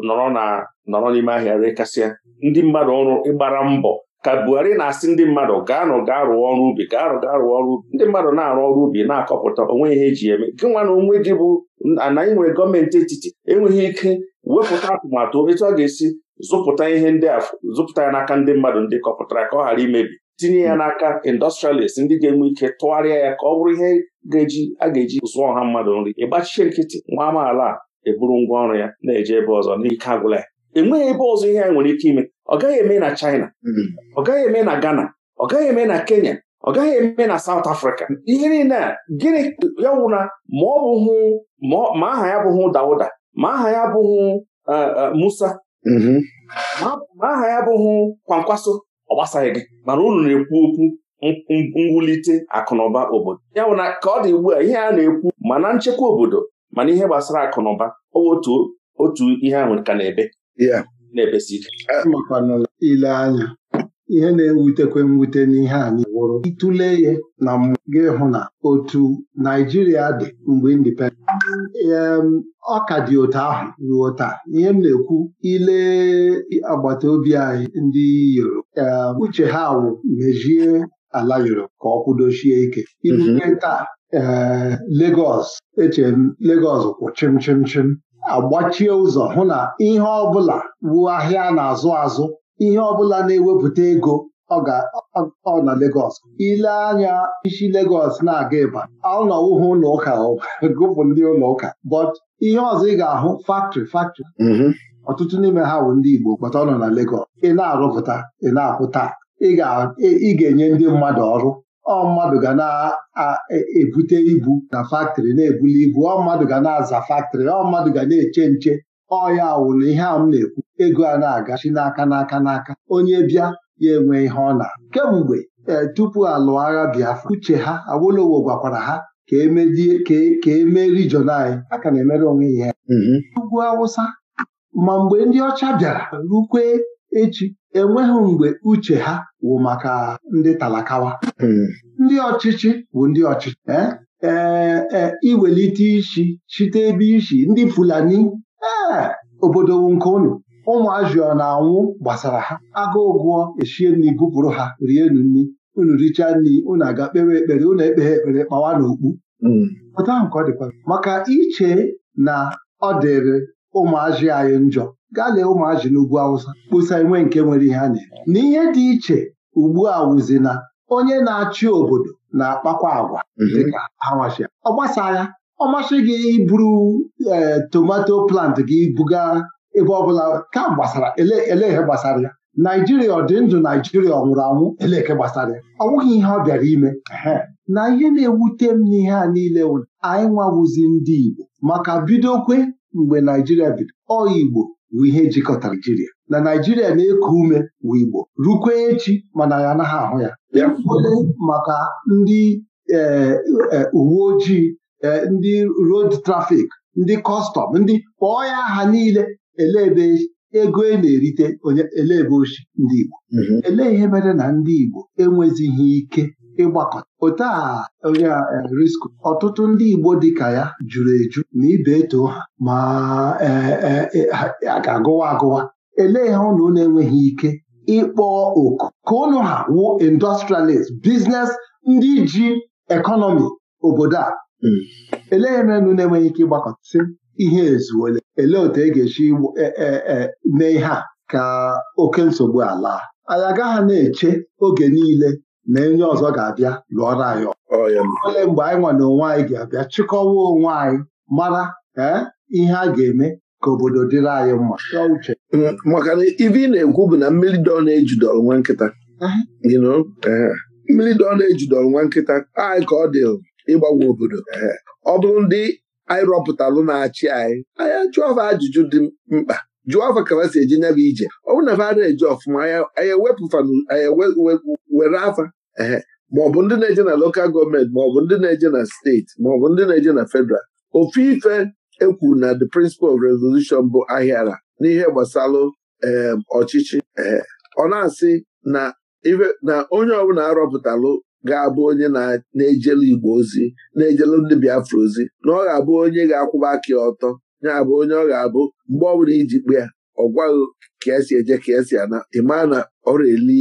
nọrọ n'ime ahịa rekasịa ndị mmadụ ọrụ ịgbara mbọ ka Buhari na-asị ndị mmadụ gaanụ gaa rụọ ọrụ ubi arụ gaa rụọ ọrụ ubi ndị mmadụ na-arụ ọrụ ubi na-akọpụta onwe ihe eji eme gị nwa na onwe gị bụ na inwe gọọmenti etiti enweghị ike wepụta atụmatụ etu ọ ga-esi zụpụta ihe ndị a zụpụta ya n'aka ndị mmadụ ndị kọpụtara ka ọ ghara imebi tinye ya n'aka industrialist ndị ga-enwe ike tụgharịa ya ka ọ bụrụ ihe ga-eji a ga-eji zụọ ọha mmadụ nri ịgbachie nkịtị nwa amaala a eburu ngwa ọrụ ya na-eje ebe ọzọ n'ike agwụla ya enweghị ebe ọzọ ihe a nwere ike ime ọ gaghị eme na China mm-hmm. ọ gaghị eme na Ghana ọ gaghị eme na Kenya ọ gaghị eme na South Africa ihe niile a gịnị ya ma ọ bụghị ma aha ya bụghị Dauda ma aha ya bụghị e, e, Musa mm-hmm. ma aha ya bụghị Kwankwaso ọ gbasaghị gị mana unu na-ekwu okwu mwulite akụnụba obodo ya bụ na ka ọ dị ugbu a ihe a na-ekwu ma na nchekwa obodo mana ihe gbasara akụnụba otu otu ihe ahụ ka na-ebe na ike ile anya ihe na-ewutekwe mwute n'ihe anyị wụrụ ịtụle ya na gị hụ na otu Naijiria dị mgbe indipendent ọ ka dị otu ahụ ruo taa ihe m na-ekwu ile agbata obi anyị ndị Yoruba uche ha wụ mejie ala Yoruba ka ọ kwụdochie ike irute mhm. taa ee Lagos eche m kwụ chim chim chim agbachie ụzọ hụ na ihe ọbụla wuo ahịa na-azụ azụ ihe ọbụla na-ewepụta ego ọ na Legọs ile anya isi Legọs na-aga ịba ọnọwụhụ ụlọ ụka gụpụ ndị ụlọ ụka but ihe ọzọ ị ga-ahụ faktrị faktrị mm-hmm. ọtụtụ n'ime ha bụ ndị Igbo kpata ọ nọ na Legọs ị na-arụpụta ị na-apụta ị ga-enye ndị mmadụ ọrụ ọ mmadụ ga na-ebute e, ibu na faktịrị na-ebuli ibu ọ mmadụ ga na-aza faktịrị ọ mmadụ ga na-eche nche ọ ya ihe a m na-ekwu ego a na-agachi n'aka n'aka n'aka onye bịa ya enwe ihe ọ na kemgbe e, tupu alụ agha Biafra uche ha Awolowo gwakwara ha ka emedie ka emee e rijiọn anyị a ka na-emere onwe ihe mm-hmm. ugwu Awụsa ma mgbe ndị ọcha bịara rukwe echi enweghị mgbe uche ha wụ maka ndị talakawa hmm. ndị ọchịchị bụ ndị ọchịchị ee eh, eh, eh, iwelite isi chite ebe isi ndị Fulani ee obodo nke ụmụ ọ na-anwụ gbasara ha agụụ gụọ eshie nri gụpụrụ ha rie nu nri unu richaa nri unu aga kpewe ekpere unu ekpeghe ekpere kpawa n'okpu hmm. pụta nke ọ dịkwa maka iche na ọ dịrị ụmụazị anyị njọ gaa lee ụmụazị n'ugwu awụsa kpụsa enwe nke nwere ihe a na-eme N'ihe dị iche ugbu a wụzi na onye na-achị obodo na-akpakwa agwa mhm. dịka hawashia ọ ya. ọ masị gị iburu ee tomato plant gị buga ebe ọbụla ka gbasara eleke gbasara ya naijiria ọ dị ndụ naijiria ọ nwụrụ anwụ eleke gbasara ya ọ nwụghị ihe ọ bịara ime na ihe na-ewute m n'ihe a niile anyị nwawuzi ndị Igbo maka bidokwe mgbe naijiria bido ọ Igbo wụ ihe jikọtara Naijiria na Naijiria na-eku ume wụ Igbo rukwe echi mana ya anaghị ahụ ya maka ndị e, e, uwe ojii e, ndị road trafik ndị kọstọm ndị kpọọ ya aha niile elebe ego e na-erite elebe ochi ndị Igbo mhm. elee ihe mere na ndị Igbo enwezighị ike ịgbakọta otu a onye eh, risk ọtụtụ ndị Igbo dịka ya juru eju na ibe eto ha ma eh, eh, a ga-agụwa agụwa elee ha unu na-enweghị ike ịkpọ oku ka unu ha wu industrialist biznes ndị ji ekọnọmi obodo a hmm. elee ha unu na-enweghị ike ịgbakọtasị ihe ezuole elee otu e ga-esi e, e, e, mee ihe a ka oke nsogbu ala anyị agaghị na-eche oge niile na onye ọzọ ga-abịa lụọra anyị ole mgbe anyị nwa na onwe anyị ga-abịa chịkọwa onwe anyị mara eh, ihe a ga-eme ka obodo dịrị anyị mma uche. maka na ibe ị na-ekwu bụ na mmiri dọ na-ejidọrọ nwa nkịta eh, mmiri dọ na-ejidọrọ nwa nkịta anyị ka ọ dị ịgbanwe obodo eh. ọ bụrụ ndị anyị rọpụtalụ na-achị anyị anyị ajụọ ajụjụ dị mkpa jụọ afọ ka si eji nya ije ọ bụrụ na fada eji ọfụma anya were afa ee maọbụ ndị na-eje na lokal gọọmenti maọbụ ndị na-eje na steeti maọbụ ndị na-eje na fedral ofu ife ekwuru na the principle of resolution bụ ahịara n'ihe gbasalụ ọchịchị ọ na-asị na onye ọbụla arọpụtalụ ga-abụ onye na-ejelu Igbo ozi na-ejelu ndị Biafra ozi na ọ ga-abụ onye ga-akwụba aka ọtọ ya bụ onye ọ ga-abụ mgbe ọ bụla iji kpe ya ọ gwaghị ka esi eje ka esi ana ịmaa na ọrụ eli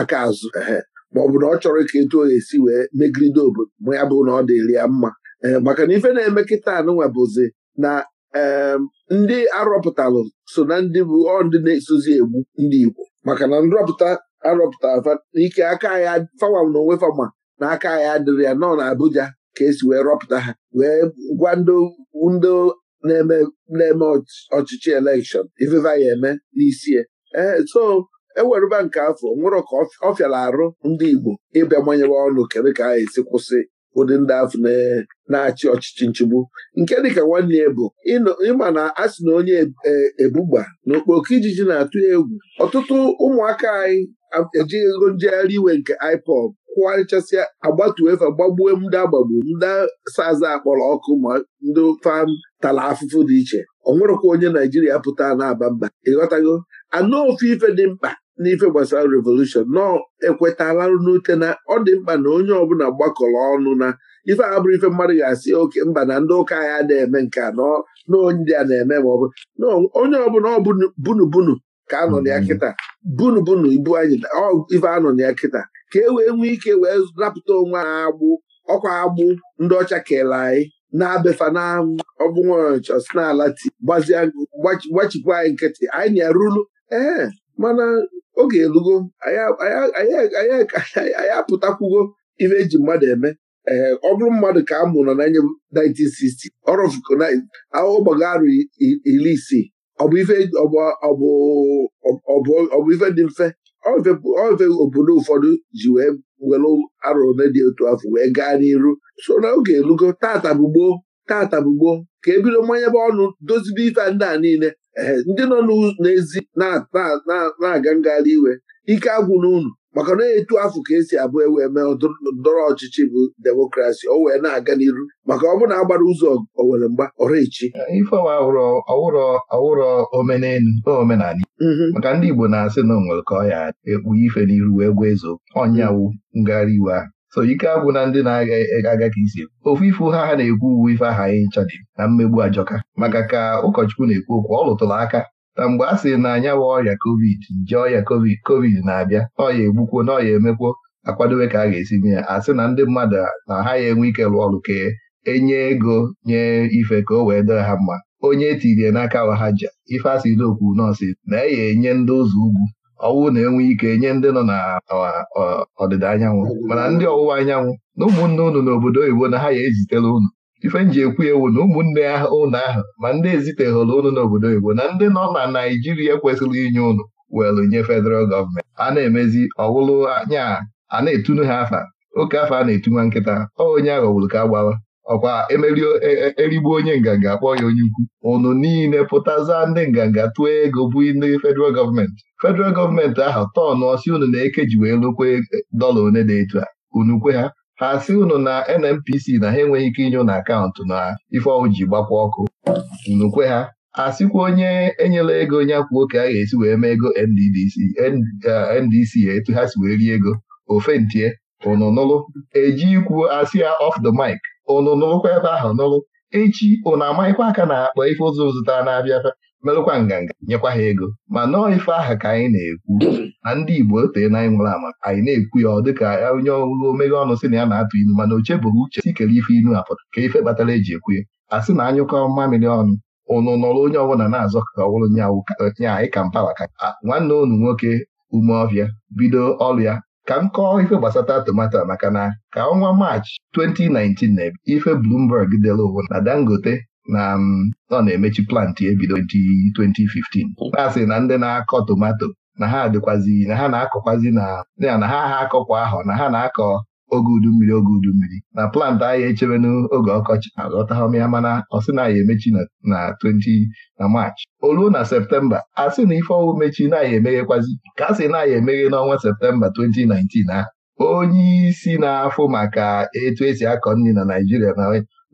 aka azụ ehe ma ọ bụ na ọ chọrọ ka etu oge esi wee megide obodo ma ya bụ na ọ dị ya mma maka na ife na-eme kịta anụnwa bụzi na ndị arọpụtalụ so na ndị bụ ọ ndị na-esozi egbu ndị Igbo maka na nrọpụta arọpụta ike aka ya fawa na onwe fama na aka ya adịrị ya nọ na Abuja ka esi wee rọpụta ha wee gwa ndị na-eme ọchịchị elekshọn ifeva ya eme n'isie ee eh, so ewerụba nke afọ nwere ka ọ fịara arụ ndị Igbo ịbịa manyere ọnụ kedu ka a esi kwụsị ụdị ndị afọ na-achị ọchịchị nchigbu nke dịka nwanne ya bụ ịma na a sị na onye eh, ebugba na okpoko ijiji na-atụ egwu ọtụtụ ụmụaka anyị ejighị ego njegharị iwe nke IPOB kụgharịchasịa agbatuefe gbagbuo ndị agbagbu ndị saza akpọrọ ọkụ ma ndị fam tala afụfụ dị iche ọ nwerekwa onye naijiria pụta na-aba mba ịghọtago anụ ofu ife dị mkpa n'ife gbasara revolushon nọọ ekwetala n'ute na ọ dị mkpa na onye ọbụla gbakọrọ ọnụ na ife abụrụ ife mmadụ ga-asị oke mba na ndị ụka ya na-eme nke a na a na-eme ma ọ bụ onye ọbụla ọ bunubunu ka anọ na ya mm-hmm. kịta bunubunu ibu anyị ife anọ na ya kịta ka e wee nwee ike wee napụta onwe ha agbụ ọkwa agbụ ndị ọcha kele anyị na-abefa na na-ala si n'ala ti gbachipụ anyị nkịtị anyị na-arụlu ee mana oge elugo anyị apụtakwugo ife eji mmadụ eme ee ọ bụrụ mmadụ ka a mụrụ na 1960 ọrụụgbago arụ iri isii ọ bụ ife dị mfe ofe obodo ụfọdụ ji wee were arọ ole dị otu afọ wee gaa n'iru so na oge elugo tata bụ tata ka e bido bụ ọnụ dozibe ife ndị a niile ndị nọ n'ezi na-aga ngagharị iwe ike agwụ n'unu maka na etu afọ ka esi abụ ewe mee ndọrọ ọchịchị bụ demokrasi o wee na-aga n'iru maka ọ bụrụ na agbara ụzọ owere mgba ọrụ ọwụrọ ife ọwụrụ ọwụrụ ọwụrụ omenala mm-hmm. maka ndị Igbo na-asị na o ka ọ ya ekpu ife n'iru wee gwa ezo ọnyawu mm-hmm. ngagharị iwe ahụ so ike abụ na ndị na-aga ka isi ofu ifu ha ha na-ekwu uwe ife aha anyị ncha dị na mmegbu ajọka maka ka ụkọchukwu na-ekwu okwu ọ lụtụrụ aka na mgbe a sịrị na anya wa ọrịa covid nje ọrịa covid covid na-abịa n'ọya egbukwuo n'ọya emekwuo akwadobe ka a ga-esi mee ya sị na ndị mmadụ na ha ya enwe ike rụọ ọrụ ka enye ego nye ife ka o wee dị ha mma onye tirie n'aka ha ji ife asị n'okwu nọọsụ na e ya enye ndị ụzọ ugwu ọwụ na-enwe ike nye ndị nọ na ọdịda anyanwụ mana ndị ọwụwa anyanwụ na ụmụnne unu n'obodo oyibo na ha ya ezitela unu ife m ji ekwu ewu na ụmụnne ụnụ ahụ ma ndị eziteghọrọ ụnụ n'obodo Igbo na ndị nọ na Naijiria kwesịrị inye ụnụ welụ nye federal gọọmenti a na-emezi ọwụlụ anya a na-etunu ha afa oke afa a na-etunwa nkịta ọ onye aghọgburu ka gbawa ọkwa e, e, erigbu onye nganga akpọ ya onye ukwu ụnụ niile pụtaza ndị nganga tụọ ego bụ ndị federal gọọmenti federal gọọmenti ahụ tọnụ ọsị ụnụ na-ekeji wee lukwe dọla one dị etu a unukwe ha ha unu na NNPC na ha enweghị ike inye n'akaụntụ na ifeọwụ ji gbakwa ọkụ nukwe ha asịkwa onye enyela ego onye akwụ oke a ga-esi wee mee ego NDDC NDC uh, etu ha si wee rie ego ofentie unu nụrụ eji ikwu asị ya off the mic unu ebe ahụ nụrụ echi unu amaghịkwa aka na akpa ife ụzọ zụtara na-abịa merụkwa nganga nyekwa ha ego ma nọọ ife aha ka anyị na-ekwu na ndị Igbo otee na anyị nwere ama anyị na-ekwu ya ọ dịka onye ọrụ omeghe ọnụ sị na ya na-atụ ilu mana oche bụrụ uche sikere ife inu apụta ka ife kpatara eji ekwu ya a sị na anyụkọ mmamịrị ọnụ ụnụ nọrọ onye ọbụla na-azọ ka ọ bụrụ nya anyị ka mpawa ka nwanne unu nwoke ume ọbịa bido ọrụ ya ka m kọọ ife gbasata tomato maka na ka ọnwa maachị 2019 na ife blumberg dere ụwa na Dangote na ọ na-emechi plantị ebido 2015 na-asị na ndị na-akọ tomato na ha dịkwazi na ha na-akọkwazi na ya na ha ha akọkwa ahọ na ha na-akọ oge udu mmiri oge udu mmiri na plant anyị echebe n'oge ọkọchị aghọtahọm ya mana ọsị na ya emechi na 20 na Maachị olu na septemba a sị na ife ọwụ mechi na ya emeghekwazi ka sị na ya emeghe n'ọnwa septemba 2019 ahụ onye isi na-afụ maka etu esi akọ nri na Naijiria na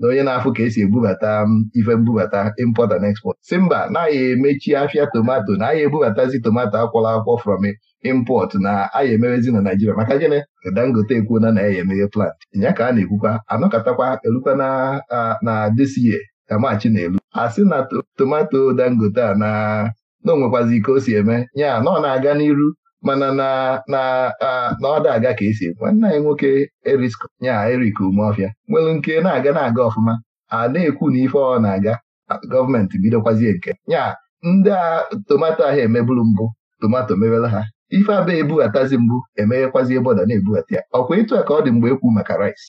na onye na-afụ ka esi ebubata ife mbubata import and export si mba na-aya emechi afịa tomato na aya ebubatazi tomato akwọla akwọ from import na aya emerezi na Naijiria maka gịnị Dangote ekwuona na ya emeghe plant nya ka a na-ekwukwa anọkatakwa elukwa na desiye ka machi na-elu a sị na tomato Dangote a na na onwekwazi ike o si eme ya na ọ na-aga n'iru mana na ọ dị aga ka esi nwanne anyị nwoke ya erik Umeofia nwere nke na-aga na-aga ọfụma a na-ekwu na ife ọ na-aga gọọmenti bidokwazie nke Nyaa ndị a tomato ahụ emeburu mbụ tomato mebere ha ife abịa atazi mbụ emeghekwazi bọda na-ebughata ya ọkwa ịtụ a ka ọ dị mgbe ekwu maka rice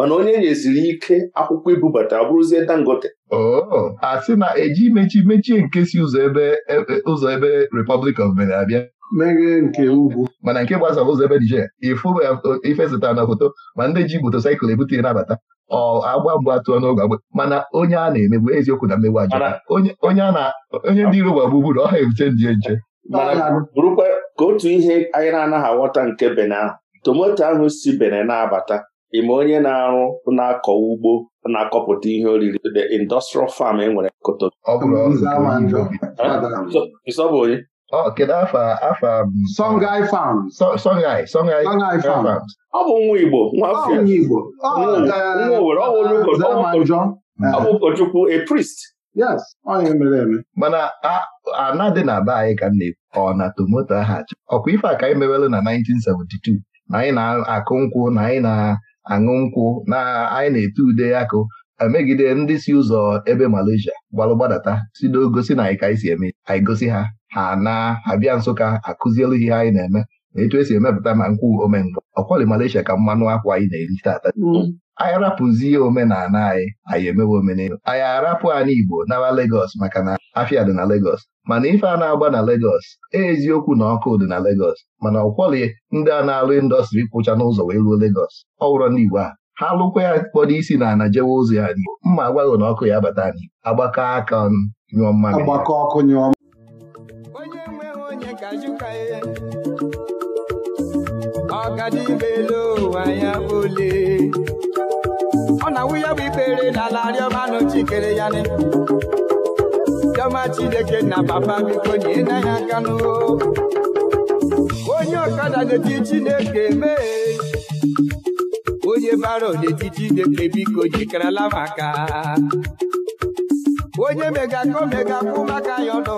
mana onye nyeziri ike akwụkwọ ibubata abụrụzie Dangote oh, a sị na eji mechi mechie nke si ụzọ ebe e, e, ụzọ ebe of Benin abịa meghe nke ugwu mana nke gbasara ụzọ ebe Niger ifụba e, ifesịtara na foto ma ndị ji motosaịkụl ebute nabata ọ agba mgba tụọ n'oge agba mana onye a na-emegbu eziokwu na mmegbu ajọ onye ndị iro gbagbugbu na ọha ebute ndị nche bụrụkwa ka otu ihe anyị na-anaghị aghọta nke Benin ahụ tomoto ahụ si Benin na-abata ị ma onye na-arụ na-akọ ugbo na-akọpụta ihe oriri the industrial farm e nwere koto ọ bụ nwa Igbo nwa ọ bụ ụkọchukwu a Yes, eme. mana ana na be anyị ka m na-ekwu ọ na tomato aha ọkwa ife a ka anyị mewelu na 1972 na anyị na-akụ nkwụ na anyị na aṅụ nkwụ na anyị na-ete ude akụ emegide ndị si ụzọ ebe Malaysia gbalụ gbadata si gosi na anyị ka anyị si eme anyị gosi ha ha na abịa bịa Nsụka akụzielu ihe anyị na-eme na etu esi emepụta ma nkwụ omengọ ọkwali Malaysia ka mmanụ akwa anyị na-eri tata mm. anyị arapụzie omenala anyị anyị emewe omenelu anyị arapụ anyị Igbo nawa Legọs maka na afịa dị na Legọs mana ife a na-agba na Legos e eziokwu na ọkụ dị na Legos mana ọkwọlị ndị a na-alụ indọstrị kwụcha n'ụzọ wee ruo Legos ọ wụrọ ndị Igbo a ha lụkwa ya kpọrọ isi na jewe ụzọ ya n'Igbo mma agwaghị na ọkụ ya bata anyị agbakọ aka nyụọ mmadụ nyụọ Chioma Chineke na papa biko nye na ya aka onye ọkada na eji Chineke mee onye bara na-eti Chineke biko jikarala maka onye megaka omegakwu maka ya ọnụ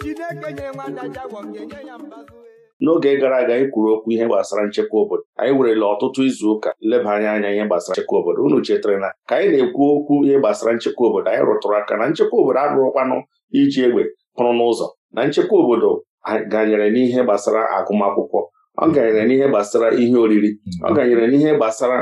Chineke nyere nwada jagwọ ga-enye ya mbazụ n'oge gara aga anyị kwuru okwu ihe gbasara nchekwa obodo anyị werela ọtụtụ izu ụka leba anya anya ihe gbasara nchekwa obodo unu chetara na ka anyị na-ekwu okwu ihe gbasara nchekwa obodo anyị rụtụrụ aka na nchekwa obodo arụrụkwanụ iji egbe pụrụ n'ụzọ na nchekwa obodo ganyere n'ihe gbasara agụmakwụkwọ ọ ganyere n'ihe gbasara ihe oriri ọ ganyere n'ihe gbasara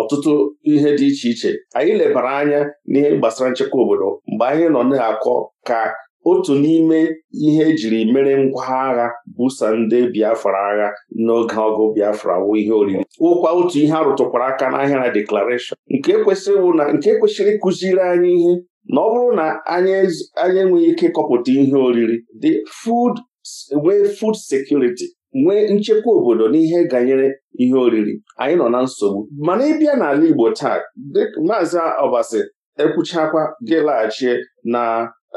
ọtụtụ ihe dị iche iche anyị lebara anya n'ihe gbasara nchekwa obodo mgbe anyị nọ na-akọ ka otu n'ime ihe ejiri mere ngwa agha busa ndị Biafra agha n'oge ọgụ Biafra wụ ihe oriri ụkwa otu ihe arụtụkwara aka n'ahịa na deklarashọn nke kwesịrị ịkụziri anyị ihe na ọ bụrụ na anyị enweghị ike kọpụta ihe oriri dị food nwee food sekuriti nwee nchekwa obodo n'ihe ganyere ihe oriri anyị nọ na nsogbu mana ịbịa n'ala Igbo taa maazị Obasi ekwuchakwa gị laghachie na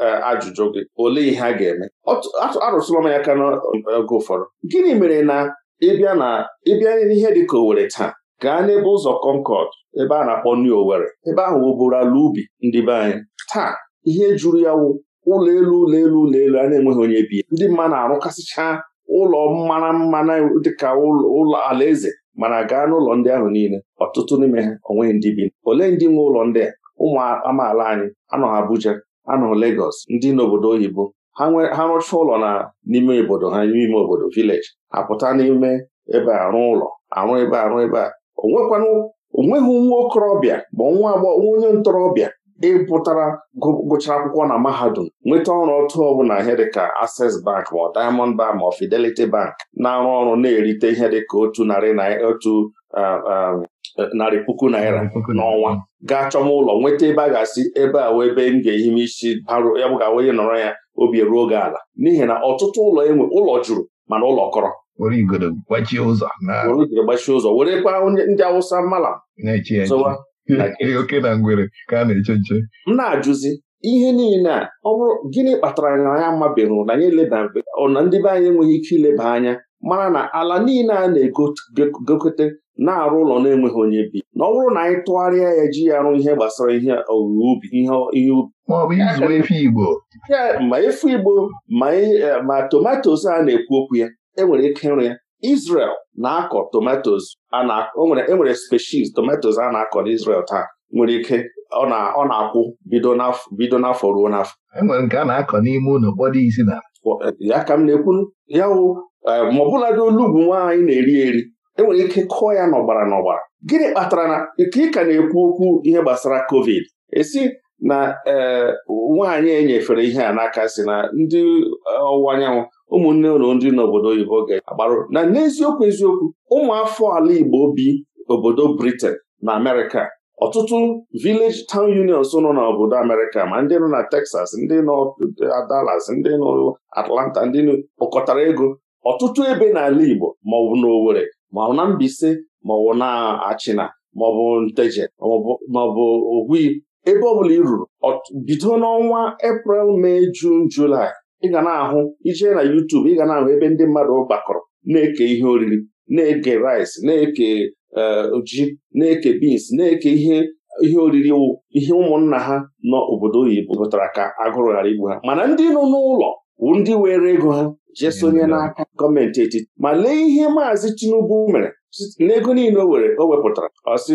Eh, ajụjụ gị olee ihe a ga-eme arụsịla m ya aka n'oge ụfọdụ gịnị mere na ịbịa na ịbịa n'ihe dị ka Owerri taa gaa n'ebe ụzọ Concord ebe a na-akpọ New Owerri ebe ahụ wụbụrụ ala ubi ndị be anyị taa ihe juru ya wụ ụlọ elu ụlọ elu ụlọ elu a na-enweghị onye bi ndị mmadụ na-arụkasịchaa ụlọ mara mmanụ dịka ụlọ alaeze mana gaa n'ụlọ ndị ahụ niile ọtụtụ n'ime ha onweghị ndị bi olee ndị nwe ụlọ ndị a ụmụ amaala anyị anọ Abuja anọ legos ndị n'obodo oyibo ha rụcha ụlọ na n'ime obodo ha n'ime obodo vileji apụta n'ime ebe arụ ụlọ arụ ebe arụ ebe a onweghị nwa okorobịa ma nwa agbọghọ onye ntorobịa ịpụtara gụchara akwụkwọ na mahadum nweta ọrụ ọtụ ọbụla ihe dịka Access Bank ma Diamond Bank ma Fidelity Bank na-arụ ọrụ na-erite ihe dịka otu narị na otu narị puku naira n'ọnwa gaa chọma ụlọ nweta ebe a ga-asị ebe a wee ebe m ga-ehi m isi barụ ya bụ ga onye nọrọ ya obi eruo oge ala n'ihi na ọtụtụ ụlọ enwe ụlọ jụrụ mana ụlọ kọrọ were igoro gbachie ụzọ were ndị awụsa mala m na-ajụzi ihe niile a ọ bụrụ gịnị kpatara na ya amabeghị na anyị ọ na ndị be anyị enweghị ike ileba anya mara na ala niile a na-egokọta na-arụ ụlọ na-enweghị onye bi na ọ bụrụ na anyị tụgharịa ya ji ya arụ ihe gbasara ihe owuwe ubi ihe ubi ma efu igbo ma e, e, tomatos a na-ekwu okwu ya enwere ike ịrụ ya Israel na-akọ tomatos enwere e species tomatos a na-akọ na isrel taa nwere ike ọ na-akwụ bido n'afọ ruo n'afọ enwere nke a na-akọ n'ime ụlọ kpọrọ isi na Eh, ya ka m na-ekwu ya wụ eh, ma ọbụladị olu bụ na-eri eri enwere ike kụọ ya n'ọgbara n'ọgbara gịnị kpatara na ka ị ka na-ekwu okwu ihe gbasara covid esi na eh, nwaanyị enyefere ihe a n'aka si na ndị ọwụwa anyanwụ ụmụnne ụlọ ndị n'obodo oyibo ga-agbarụ na n'eziokwu eziokwu ụmụ ala Igbo bi obodo Britain na Amerịka ọtụtụ village town unions nọ n'obodo Amerịka ma ndị nọ na Texas ndị nọ Dallas ndị nọ Atlanta ndị kpọkọtara ego ọtụtụ ebe n'ala Igbo maọbụ n'Owerri maọbụ na Mbaise maọbụ na Achịna maọbụ Nteje maọbụ Ogwi ebe ọbụla i ruru bido n'ọnwa Eprel Mee Jun Julaị ị ga na-ahụ ijee na YouTube ị ga na-ahụ ebe ndị mmadụ gbakọrọ na-eke ihe oriri na-eke rice na-eke E, ji na-eke bins na-eke ihe ihe oriri ihe ụmụnna ha nọ obodo oyibo wepụtara ka agụrụ ghara igbu ha mana ndị nọ n'ụlọ bụ ndị were ego ha jee hmm. sonye n'aka gọọmenti etiti ma lee ihe maazị Tinubu mere n'ego niile o were o wepụtara ọsị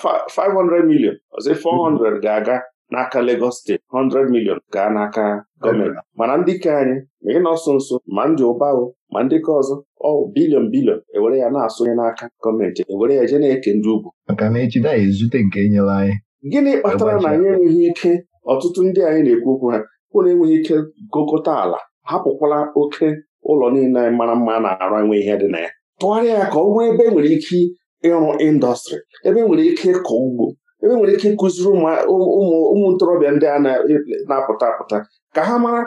500 ah, million ọsị 400 ga-aga n'aka Lagos steeti 100 million gaa n'aka gọọmenti mana ndị ke anyị ma ị nọ nso ma ndị ụbahụ ma ndị ọzọ ọ bilion bilion ewere ya na-asụnye n'aka gọọmenti ewere ya je na-eke ndị ugwu maka na echi anyị nke enyela anyị gịnị kpatara na anyị enweghị ike ọtụtụ ndị anyị na-ekwu okwu ha na enweghị ike gokọta ala hapụkwala oke ụlọ niile anyị mara mma na-arụ enwe ihe dị na ya tụgharịa ya ka ọ nwee ebe enwere ike ịrụ indọstrị ebe enwere ike ịkọ ugbo ebe nwere ike ịkụziri ụmụ ntorobịa ndị a na-apụta apụta ka ha mara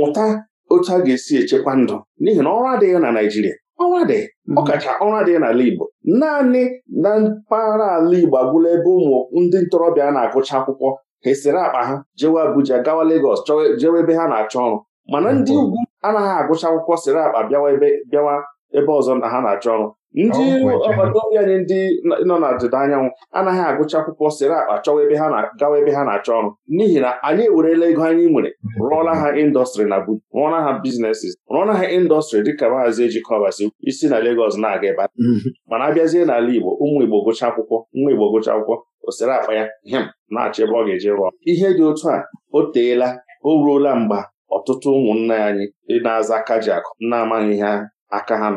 mụta otu a ga-esi echekwa ndụ n'ihi na ọrụ adịghị na Naịjirịa ọrụ adịghị mhm. ọkacha ọrụ adịghị n'ala Igbo naanị na mpaghara ala Igbo agwụla ebe ụmụ ndị ntorobịa na-agụcha akwụkwọ ha esere akpa ha jewe Abuja gawa Legọs jewe ebe ha na-achọ ọrụ mana ndị mhm. ugwu anaghị agụcha akwụkwọ sere akpa bịawa ebe ọzọ na ha na-achọ ọrụ ndị agbata anyị ndị nọ na ndịda anyanwụ anaghị agụcha akwụkwọ sịrị akpa chọwa ebe ha gawa ebe ha na-achọ ọrụ n'ihi na anyị ewerela ego anyị nwere rụọla ha indọstrị na bu rụọla ha biznesis rụọla ha indọstrị dịka maazị ejikọbasi isi na legos na-aga ebe mm-hmm. mana abịazie n'ala Igbo ụmụ Igbo gụcha akwụkwọ nwa Igbo gụcha akwụkwọ o sịrị akpa ya hem na-achọ ebe ọ ga-eji rụọ ihe dị otu a o teela o ruola mgba ọtụtụ ụmụnna anyị na-aza kajiakụ na-amaghị ha aka ha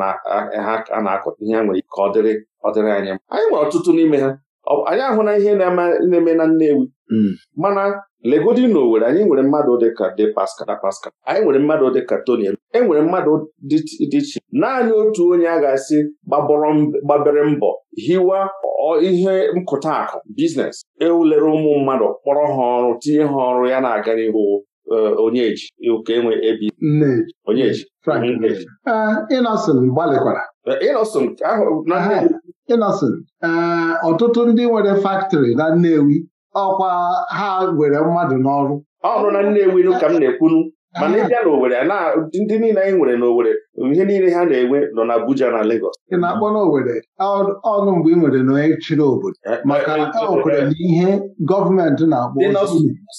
na-akụ ihe a nwere ike ọ dịrị ọ anyị anyị nwere ọtụtụ n'ime ha anyị na ihe na-eme na Nnewi hmm. mana legodi na Owerri anyị nwere mmadụ dịka dị Pascal Da anyị nwere mmadụ dịka Toniel. e nwere mmadụ dị iche naanị otu onye a ga-asị gbabere mbọ hiwa ihe nkụta akụ biznes ewulere ụmụ mmadụ kpọrọ ha ọrụ tinye ha ọrụ ya na-aga n'ihu Onyeji ụka nwe ebi Onyeji Innocent gbalịkwara eh, Innocent Innocent eh, ọtụtụ ndị nwere faktọrị na Nnewi ọkwa ha were mmadụ n'ọrụ ọrụ na Nnewi ka m na-ekwunu mana ị bịa n'Owere ndị niile anyị nwere n'Owere ihe niile ha na-enwe nọ na Abuja na Lagos ị na-akpọ n'Owere ọnụ mgbe ị nwere na onye chịrị obodo eh, maka ewekwere eh, na ihe gọọmenti na-akpọ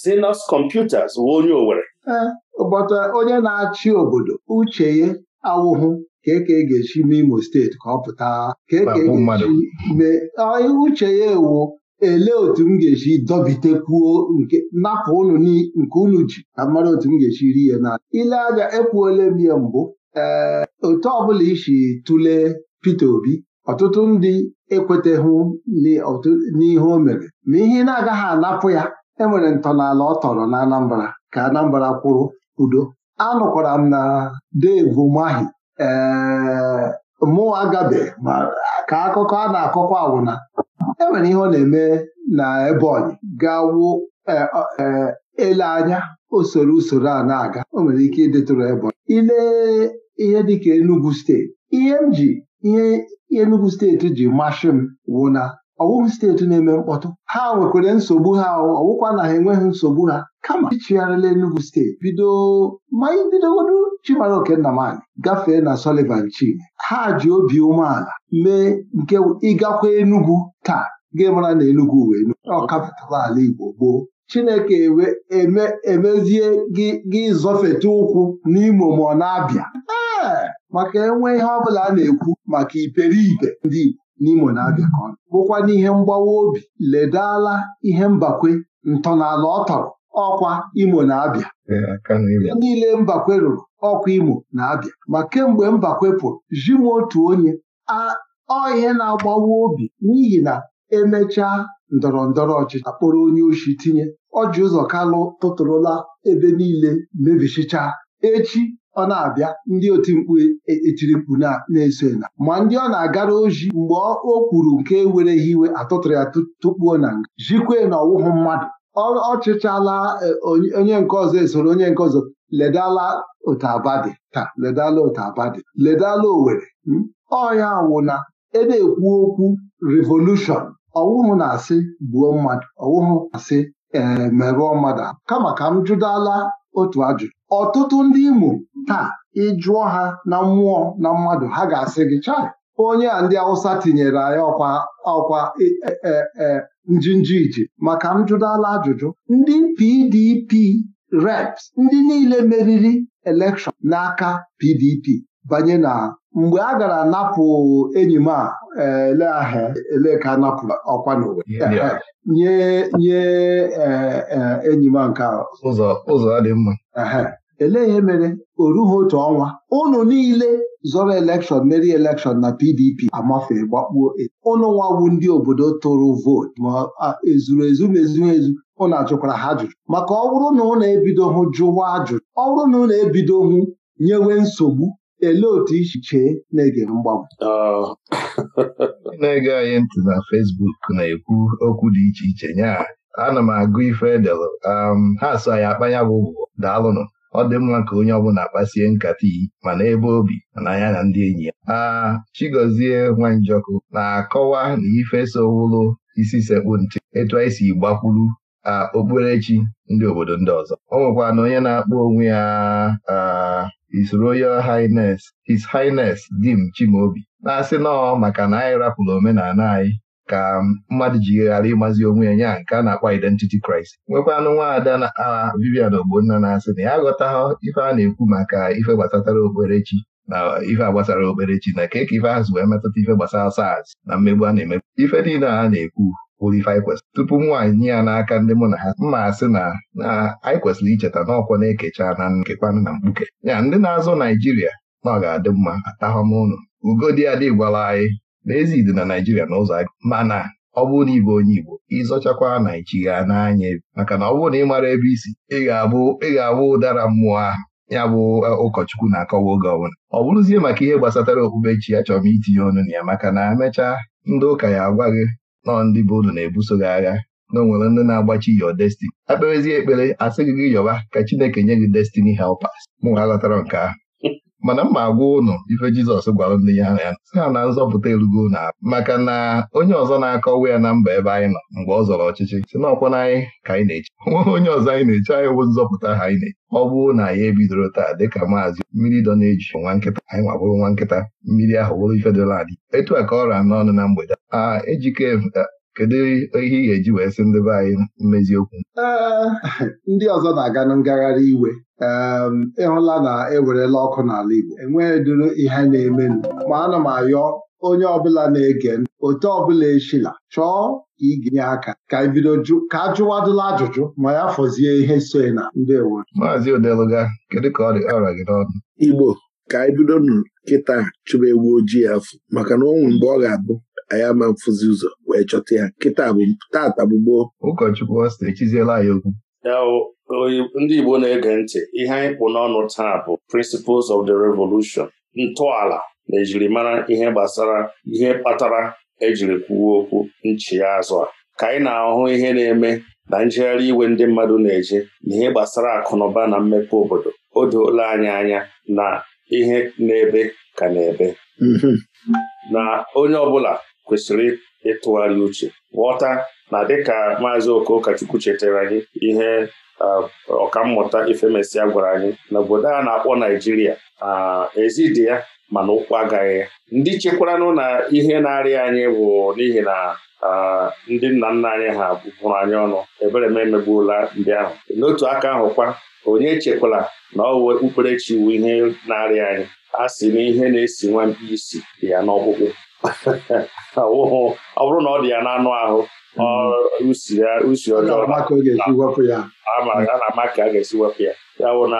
Sinus Computers wụ onye Owere ee eh, ụbọchị onye na-achị obodo uche ya awụhụ ka eke ga-esi n'Imo steeti ka ọ pụta ka eke ga-esi mee uche ya ewu elee otu m ga-esi dọbitekwuo nke napụ ụnụ nke unu ji ka otu m ga-esi ri ya na ile anya ekwuola m ya mbụ ee eh, otu ọbụla isi tụlee Peter Obi ọtụtụ ndị ekweteghụ n'ihe o mere ma ihe na-agaghị anapụ ya enwere ntọala ọ tọrọ na Anambra ka Anambra kwụrụ udo anụkwara m na Dave Mahi ee mụwa ma ka akụkọ a na-akọkwa awụna Enwere ihe ọ na-eme na Ebonyi ga-awụ e, e, ele anya usoro usoro a na-aga o nwere ike ịdịtụrụ Ebonyi Ile ihe dịka Enugu steeti ihe m ji ihe Enugu steeti ji masị m wụ ọwụhụ steeti na-eme mkpọtụ ha nwekwara nsogbu ha ọwụkwa na ha enweghị nsogbu ha kama ịchịgharịla Enugu steeti bido ma anyị bidogodu Chimamanda Okennamali gafee na Sọlivan Chine ha ji obi umeala mee nke ịgakwa Enugu taa gị mara na Enugu wee Enugu ala Igbo gboo Chineke emezie gị zọfete ụkwụ n'Imo ma ọ na-abịa ee maka enwe ihe ọ bụla a na-ekwu maka iperibe ndị Igbo n'Imo na Abịa ka ọ nọ bụkwa n'ihe mgbawa obi ledala ihe mbakwe ntọnala ọ tọrọ ọkwa Imo na Abịa niile mbakwe rụrụ ọkwa Imo na Abịa ma kemgbe mbakwe pụrụ ji m otu onye ọ ihe na-agbawa obi n'ihi na emechaa ndọrọ ndọrọ ọchịchị akpọrọ onye ochi tinye ọji ụzọ kalụ tụtụrụla ebe niile mebichicha echi ọ na-abịa ndị oti mkpu e, etiri mkpu na-eso na ma ndị ọ na-agara oji mgbe o kwuru nke wereghị iwe atụtụrụ ya tụkpuo na nga jikwe na ọwụhụ mmadụ ọchịchala e, onye nke ọzọ esoro onye nke ọzọ ledala otu taa ledala otu ledala Owerri hmm? ọya wụna ena-ekwu okwu revolushọn ọwụhụ na-asị gbuo mmadụ ọwụhụ na-asị ee merụọ mmadụ kama ka m jụdala otu ajụjụ ọtụtụ ndị Imo taa ịjụọ ha na mmụọ na mmadụ ha ga-asị gị chaị. onye a ndị Awụsa tinyere anyị ọkwa ọkwa e, e, e, njinji iji maka m jụdala ajụjụ ndị PDP reps ndị niile meriri elekshọn n'aka PDP banye na mgbe a gara napụ enyi m a ele aha ele ka a napụrụ ọkwa n'ụwa nye nye e, e, enyi m nke ụzọ adị mma elee ihe mere o rughi otu ọnwa ụnụ niile zọrọ elekshọn meri elekshọn na PDP amafe gbakpuo ụnụ e. ndị obodo tụrụ vootu ma ezuru ezu ma ezu ụnụ ajụkwara ha ajụjụ maka ọ bụrụ na ụnụ ebidoghị jụwa ajụjụ ọ bụrụ na ụnụ hụ nyewe nsogbu Elee otu isi chee na-ege mgbanwe? Oh. na-ege anyị ntị na Fesbuk na-ekwu okwu dị iche iche nyaa. ana m agụ ife edelụ um, ha so anyị akpanya bụ daalụnụ ọ dị mma ka onye ọbụla kpasie nkata iyi mana ebe obi mana anya na ndị enyi ya aa Chigozie Nwanjọkụ na-akọwa na ife sowụlụ isi sekpu ntị, etu anyị si gbakwuru okpukperechi ndị obodo ndị ọzọ o nwekwara na onye na-akpọ onwe ya His Royal Highness His Highness Dim Chimaobi na-asị nọọ maka na anyị rapụrụ omenala anyị ka mmadụ ji ghara ịmazi onwe ya nke a na-akpọ identity crisis nwekwanụ nwaada na Vivian Ogbonna na-asị na ya ha ife a na-ekwu maka ife gbasatara okperechi na ife gbasara okperechi na keke ife ahụ wee metụta ife gbasara SARS na mmegbu a na-emegbu ife niile a na-ekwu kwụlife tupu m nwaanyị nye ya n'aka ndị mụ na ha mma asị na na anyị kwesịrị icheta na ọkwa na-ekecha na nkekwanụ na mkpuke ya ndị na-azụ Naijiria na ọ ga-adị mma atahọm ụnụ ugodi adị gwala anyị n'ezi dị na Naijiria na ụzọ mana ọ bụrụ na ịbụ onye Igbo ịzọchakwa Naijiria n'anya maka na ọ bụrụ na ị mara ebe isi ị ga-abụ ụdara mmụọ ahụ ya bụ e, ụkọchukwu na-akọwa oge ọbụla ọ bụrụzie maka ihe gbasatara okpukpe chi ya chọrọ m itinye ọnụ na ya maka na emechaa ndị ụka ya agwa gị nọ ndị be unu na-ebuso gị agha na o nwere ndị na-agbachi yo Destiny. akperezie ekpere asị gị gị yọba ka Chineke nye gị destini helpers mụ aghọtara nke ahụ mana mma agwa ụnụ ife Jizọs gwara ndị ya ya si ha na nzọpụta erugo na maka na onye ọzọ na-akọwa ya na mba ebe anyị nọ mgbe ọ zọrọ ọchịchị si n'ọkwa na anyị ka anyị na-eche nweghị onye ọzọ anyị na-eche anyị bụ nzọpụta ha anyị na-eche ọ bụrụ na ya ebidoro taa dịka maazị mmiri dọ na-eji nwa nkịta anyị nwabụrụ nwa nkịta mmiri ahụ wụrụ ife dịla adị etu a ka ọ n'ọnụ na mgbede ejike kedu ihe ị ga-eji wee sị ndị be anyị mmezi okwu ndị ọzọ na-aga na ngagharị iwe ịhụla na ewerela ọkụ n'ala Igbo enweghị duru ihe na-emenụ ma ana m ayọ onye ọbụla na-ege otu ọbụla echila chọọ ka ị ga-enye aka ka e bido ka a jụwadụla ajụjụ ma ya fọzie ihe so na ndị ewe Maazị Odeluga kedu ka ọ dị ọrịa gị n'ọnụ Igbo ka anyị e bido nụ kịta chụba ewu ojii afọ maka na ọnwụ mgbe ọ ga-abụ anyị ama mfụzi ụzọ wee chọta ya kịta bụ tata bụ gboo ụkọchukwu ọsta etiziela anyị okwu ndị Igbo na-ege ntị ihe anyị kpụ n'ọnụ taa bụ Principles of the Revolution ntọala na ejirimara ihe gbasara ihe kpatara ejiri kwuo okwu nchịazụ a ka anyị na-ahụ ihe na-eme na njegharị iwe ndị mmadụ na-eje na ihe gbasara akụnụba na mmepe obodo o doola anyị anya na ihe na-ebe ka na-ebe mm-hmm. na onye ọbụla kwesịrị ịtụgharị uche ghọta na dịka maazị Okochukwu chetara gị ihe ọkammụta Ifemesịa gwara anyị na obodo a na-akpọ Naijiria ezi ya mana ụkwụ agaghị ya ndị chekwaranụ na ihe na-arịa anyị bụ n'ihi na ndị nna nna anyị ha bụrụ anyị ọnụ ebere m emegbuola ndị ahụ n'otu aka ahụ kwa, onye echekwala na ọwụ okpukperechi iwu ihe na-arịa anyị a sị na ihe na-esi nwa mkpi isi dị ya n'ọkpụkpụ ọ bụrụ na ọ dị ya na anụ ahụ usi mm-hmm. ọjọọ ama a ama ka a ga-esi wepụ ya ya bụ na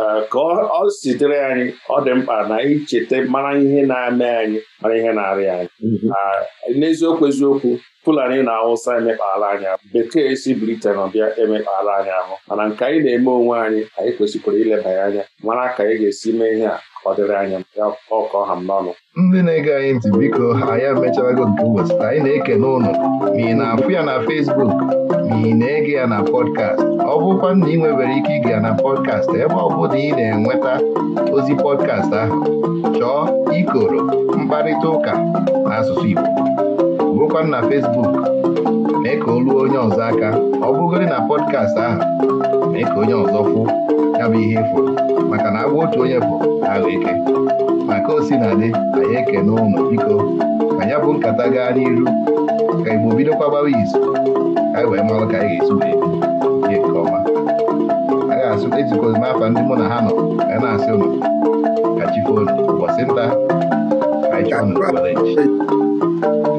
e, ka ọ sitere anyị ọ dị mkpa na icheta mara ihe na-eme anyị mara ihe na arị anyị mm-hmm. n'eziokwu eziokwu Fulani na awụsa emekpaala anyị ahụ Bekee si Britain ọbịa emekpaala anyị ahụ mana nke anyị na-eme onwe anyị anyị kwesịkwara ileba ya anya mara ka anyị ga-esi mee ihe a ọdịrị anya anyị ya ọkọ n'ọnụ ndị na-ege anyị ntị biko ya emecharago nke ụbọchị anyị na eke n'ụlọ, ma ị na-afụ ya na Fesbuk, ma ị na-ege ya na pọdkast ọ bụkwa na ị nwebere ike ige ya na pọdkast ebe ọ bụla ị na-enweta ozi pọdkast ahụ chọọ ikoro mkparịta ụka asụsụ Igbo gụkwa na Facebook mee ka o onye ọzọ aka ọ bụgoro na pọdkast ahụ mee ka onye ọzọ fụ ya bụ ihe ịfụ maka na agwa otu onye bụ ahụ ike maka o si na dị anyị eke n'ụlọ biko ka ya bụ nkata gaa n'iru ka Igbo bido kwabawa izu ka anyị wee mara ka anyị ga esu wee ihe nke ọma a ga-asụ ezikozi n'afa ndị mụ na ha nọ ka na-asị ụnụ ka chi fonu ụbọchị nta ka anyị chọọ ụnụ